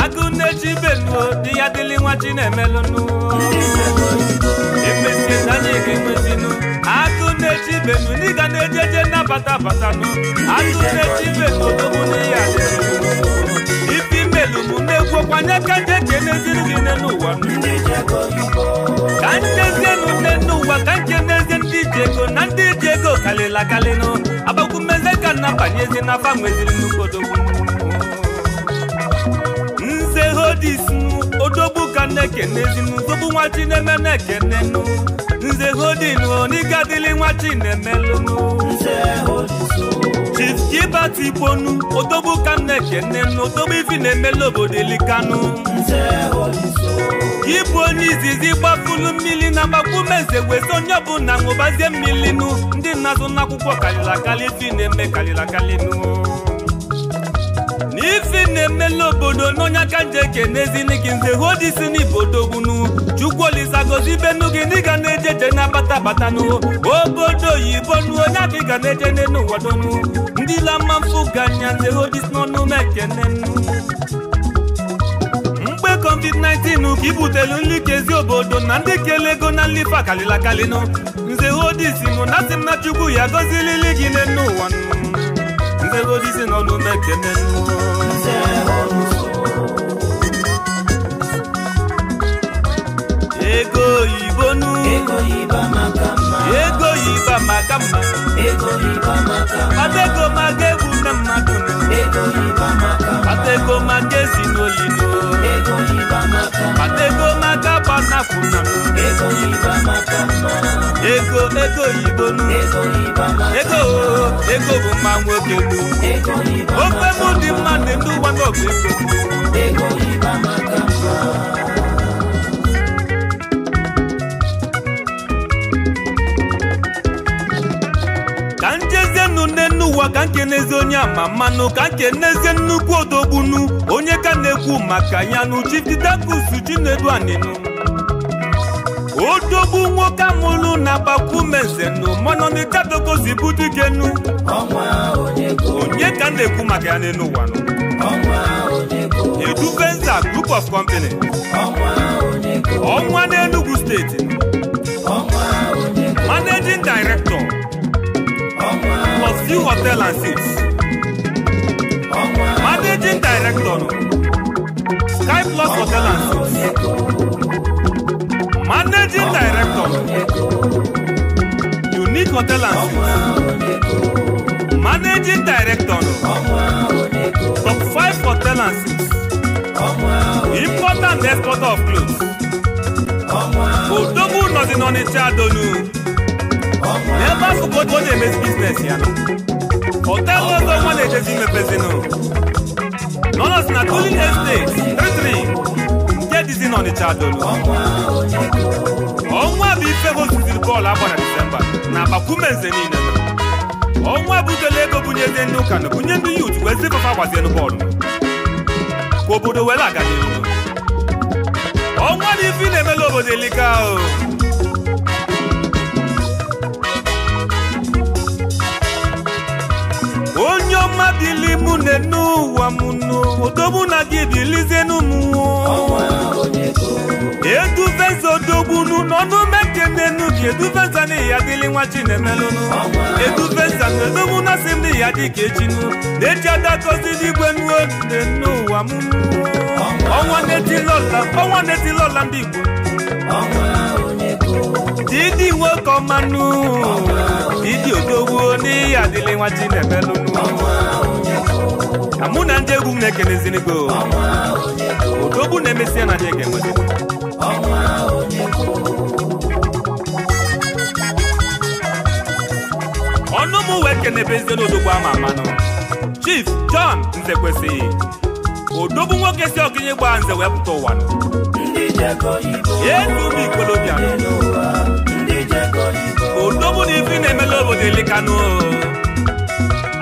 agụ na-echibenu di ya dịli nwa chinemelụnụ atụ na-echi ibem na-eji eje atụ na ka nje ka eneziri gị nne n'ụwa ka njezienụ nne n'ụwa ka nje n'ezie ndị iji na ndị iji ego kalịla akalịnụ agbakwu mmezi ka nna banyezi nze hodis nze hodinu n'ikadili nwa chinemelụnụ chief jibat igbonu odogbu ka m na-ekene n'odogbu ifi na-emela obodo elikanụ ịbụ onye izizi gbafulu mmiri na gbagbume wezi onye ọbụla ṅụbazie mmiri nụ ndị na-azụ n'akwụkwọ karịrị akarị ifi na-eme karịrị akarị nụ ezi na-emela obodo n'ọnya ka nje ekenezini gị nze hụ odisi n'ibodogbunu chukwu olisagozi benu gị ga na-ejeje na bata abatanụ obodo oyibo nu onye adịga na-eje n'elu wadonu ndị lama mfụ ganya nze hụ odisi n'ọnụ m ekene mgbe covid-19 ka ibutelu nri kezi obodo na ndị kele ego na nlife akalịla kalịnụ nze hụ odisi mụ na sị m na chukwu ya gọzilili gị n'elu ụwa nze hụ odisi n'ọnụ m ekene ego yibonu ego yiba makama ego iba makama ego iba makama atego magebu na mmadụ ego iba makama atego magezi n'olino ego iba makama atego magaba na funa ego iba makama ego ego yibonu ego iba, makama ego ego bụ mma ego iba makama ofe mụ dị mma dị ego ego makama kene n'ụwa ka na-eze onye ama mmanụ ka nke na-eze nnukwu odogbunu onye ka na-ekwu maka ya nụ Chief Chinedu aninu odogbu nwoke amụlụ na gbakwumezenụ manọnịkadogozibudugenu onye ka na-ekwu maka ya n'elu ụwa Edubenza Group of Company ọnwa n'Enugu steeti managing director plus few hotel and seats. Managing director Sky Plus Hotel and Seats. Managing director Unique Hotel and Seats. Managing director Top 5 Hotel and Seats. Important exporter of clothes. Odogun Nọ̀dínọ́ni tí a dolú. n'ebe akụkụ ọ na-emezi biznes ya họtelụ ọzọ nwa na-ejezi imepezinu nọnọs na tulin esteti tritri nke dizi n'ọnịcha dolu ọnwa bụ ife hozuziri bọọlụ agba na disemba na agbakume nze niile ọnwa bụ udele ego bunyezi ndị ụka na bunye ndụ yut wee zipụfa bọọlụ obodo were aga ọnwa na na-emela obodo elika onye ọma dịli mụ na n'ụwa m nụ odogbu na gị dịlizienụ m eduveza odogbunu n'ọnụ mekenenu gị eduveza na ya dịli nwa chinemelụnụ eduveza na odogbu na sị m na ya dị ka echinu na-eji adagozi n'igwe nuo ne n'ụwa m ọnwa na-etilola ndị Igbo didi nwoke ọmanụ didi odogwu n'ihi adịlị nwa chinemelụnụ mụ na ndị egwu m na-ekelezirigo odogwu na-emesịa na anyị ga-enweta ọnụ m wee ama amanụ chief john nzekwesịghị odogwu nwoke si ọgịnye gbaa nze wee pụta ụwa etubi ikolobịa odogwu na ife na-emela obodo elikanụ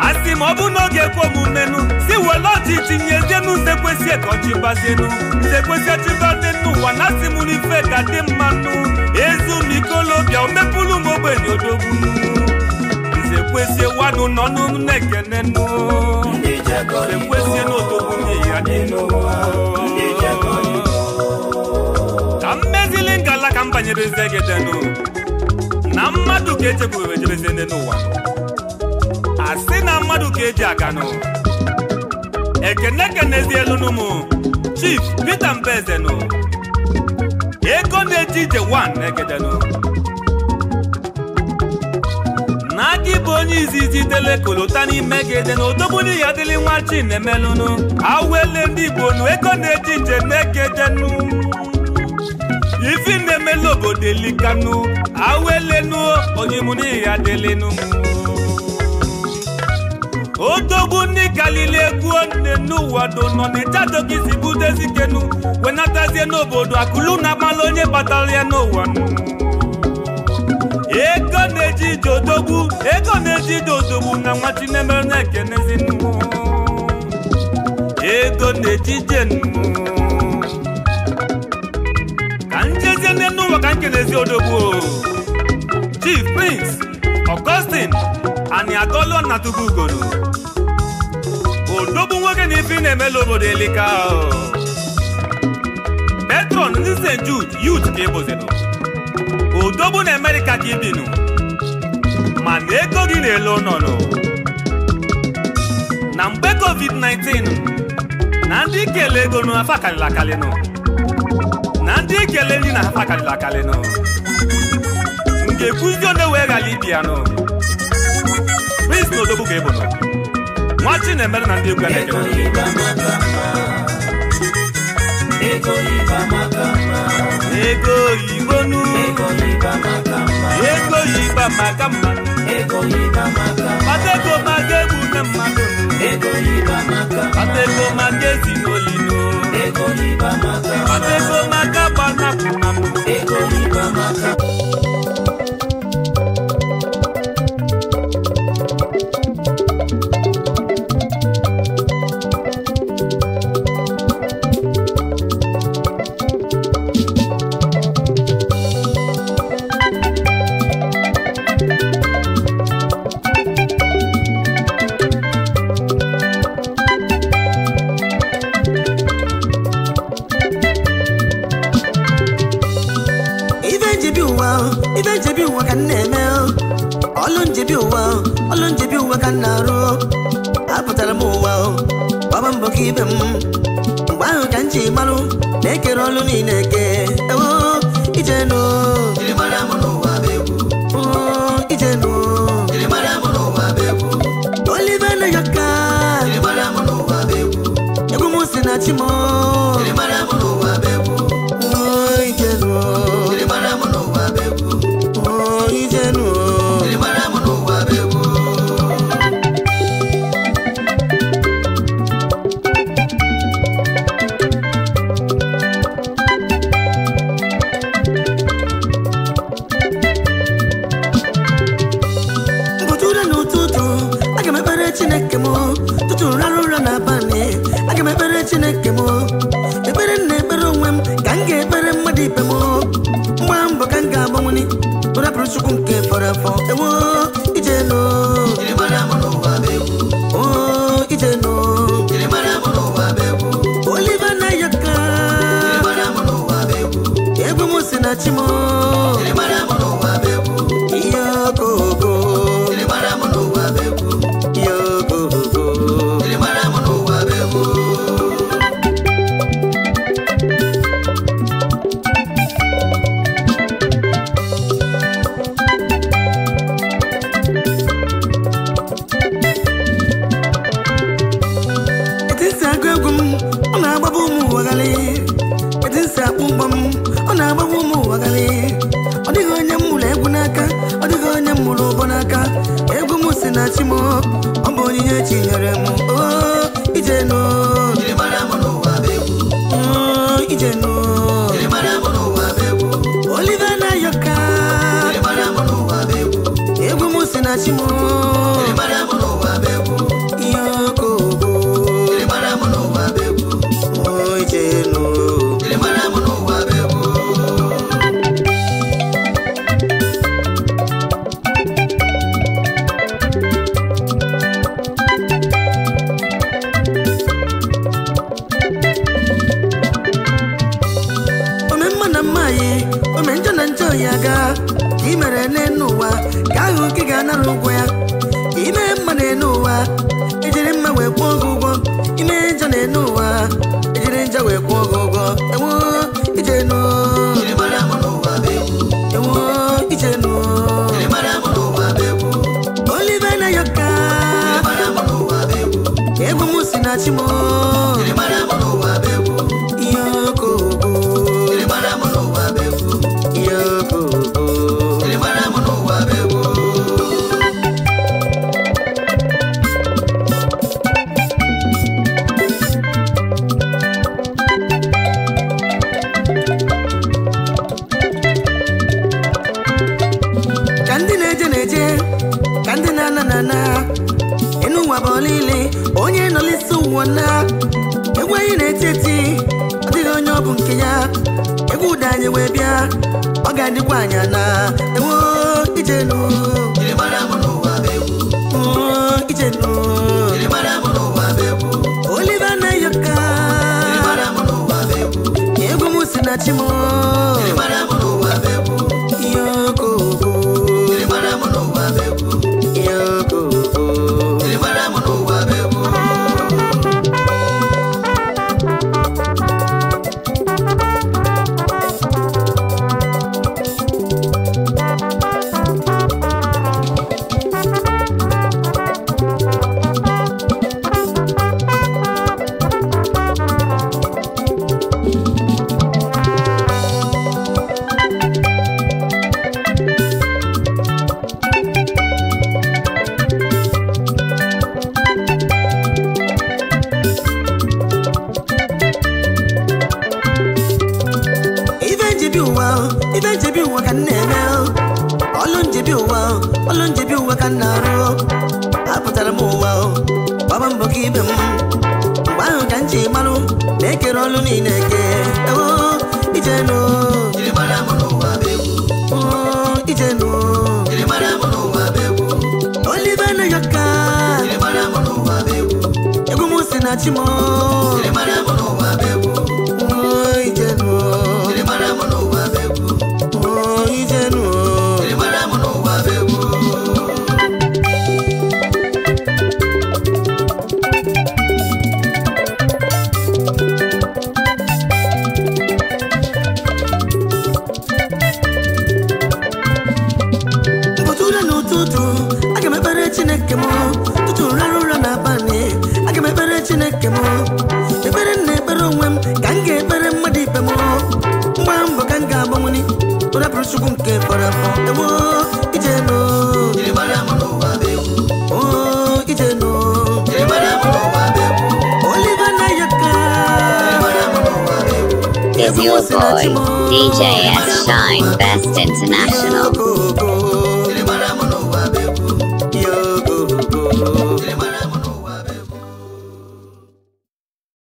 asị ma ọ bụ n'oge kwe omumenụ si were ọchị tinye denu nze kwesị ka gbazienụ nze kwesị ọchị gbazie n'ụwa na asị mụrụ ife ka dị mmanụ ezu m ikolobịa omepụlụ m ogbenye odogwu sekwesie wanu nọnụ m na-ekenenu sekwesie n'otogbu ya adịnụ ka m mezili ngala ka m banyere zegedenu na mmadụ ka echekwuru ejereze n'ụwa a sị na mmadụ ka eji aganụ ekene kenezielunu m chief Peter Mbezenu ego na-eji ije 1 na-egedenu aka ịbụ onye izizi dele kolota n'ime gede na odogburu ya dịlị nwa chinemelụnụ awele ndị igbo nu ego na-eji nje na-egedenu ifi na-emelu obodo elikanu awụelenu onye ya dịlịnụ odogwu ndị kalili egwu nne n'ụwa do nọ na-echadogisi budezikenu wenatazie n'obodo akụlu na-akpala onye kpatara ya n'ụwa nụ ego na-eji ije odogwu ego na-eji ije na nwa chinemere na-ekenezi ego na-eji ije ka njezie nne n'ụwa ka nkenezi odogwu chief prince augustine ani agolo na tupu ugoro odogwu nwoke na ibi na-emela obodo elika petron ndị st jude yut ka e obodo na na Amerịka ka ibinu mana ego gị na-ele ụnọnụ na mgbe covid-19 na ndị ikele ego nụ afa karịrị akarịnụ na ndị ikele nri na afa karịrị akarịnụ m ga-ekwuzi onye wee ghara ibia nụ prince na odogwu ka ebụrụ nwa chi na-emere na ndị egwu a na-ekele ego ịba maka ego ibonu ego ịba maka ego ịba maka ego ịba maka mma patego na mmadụ ego ịba maka mma patego maka ezinolino ego ịba maka mma patego maka ego ịba maka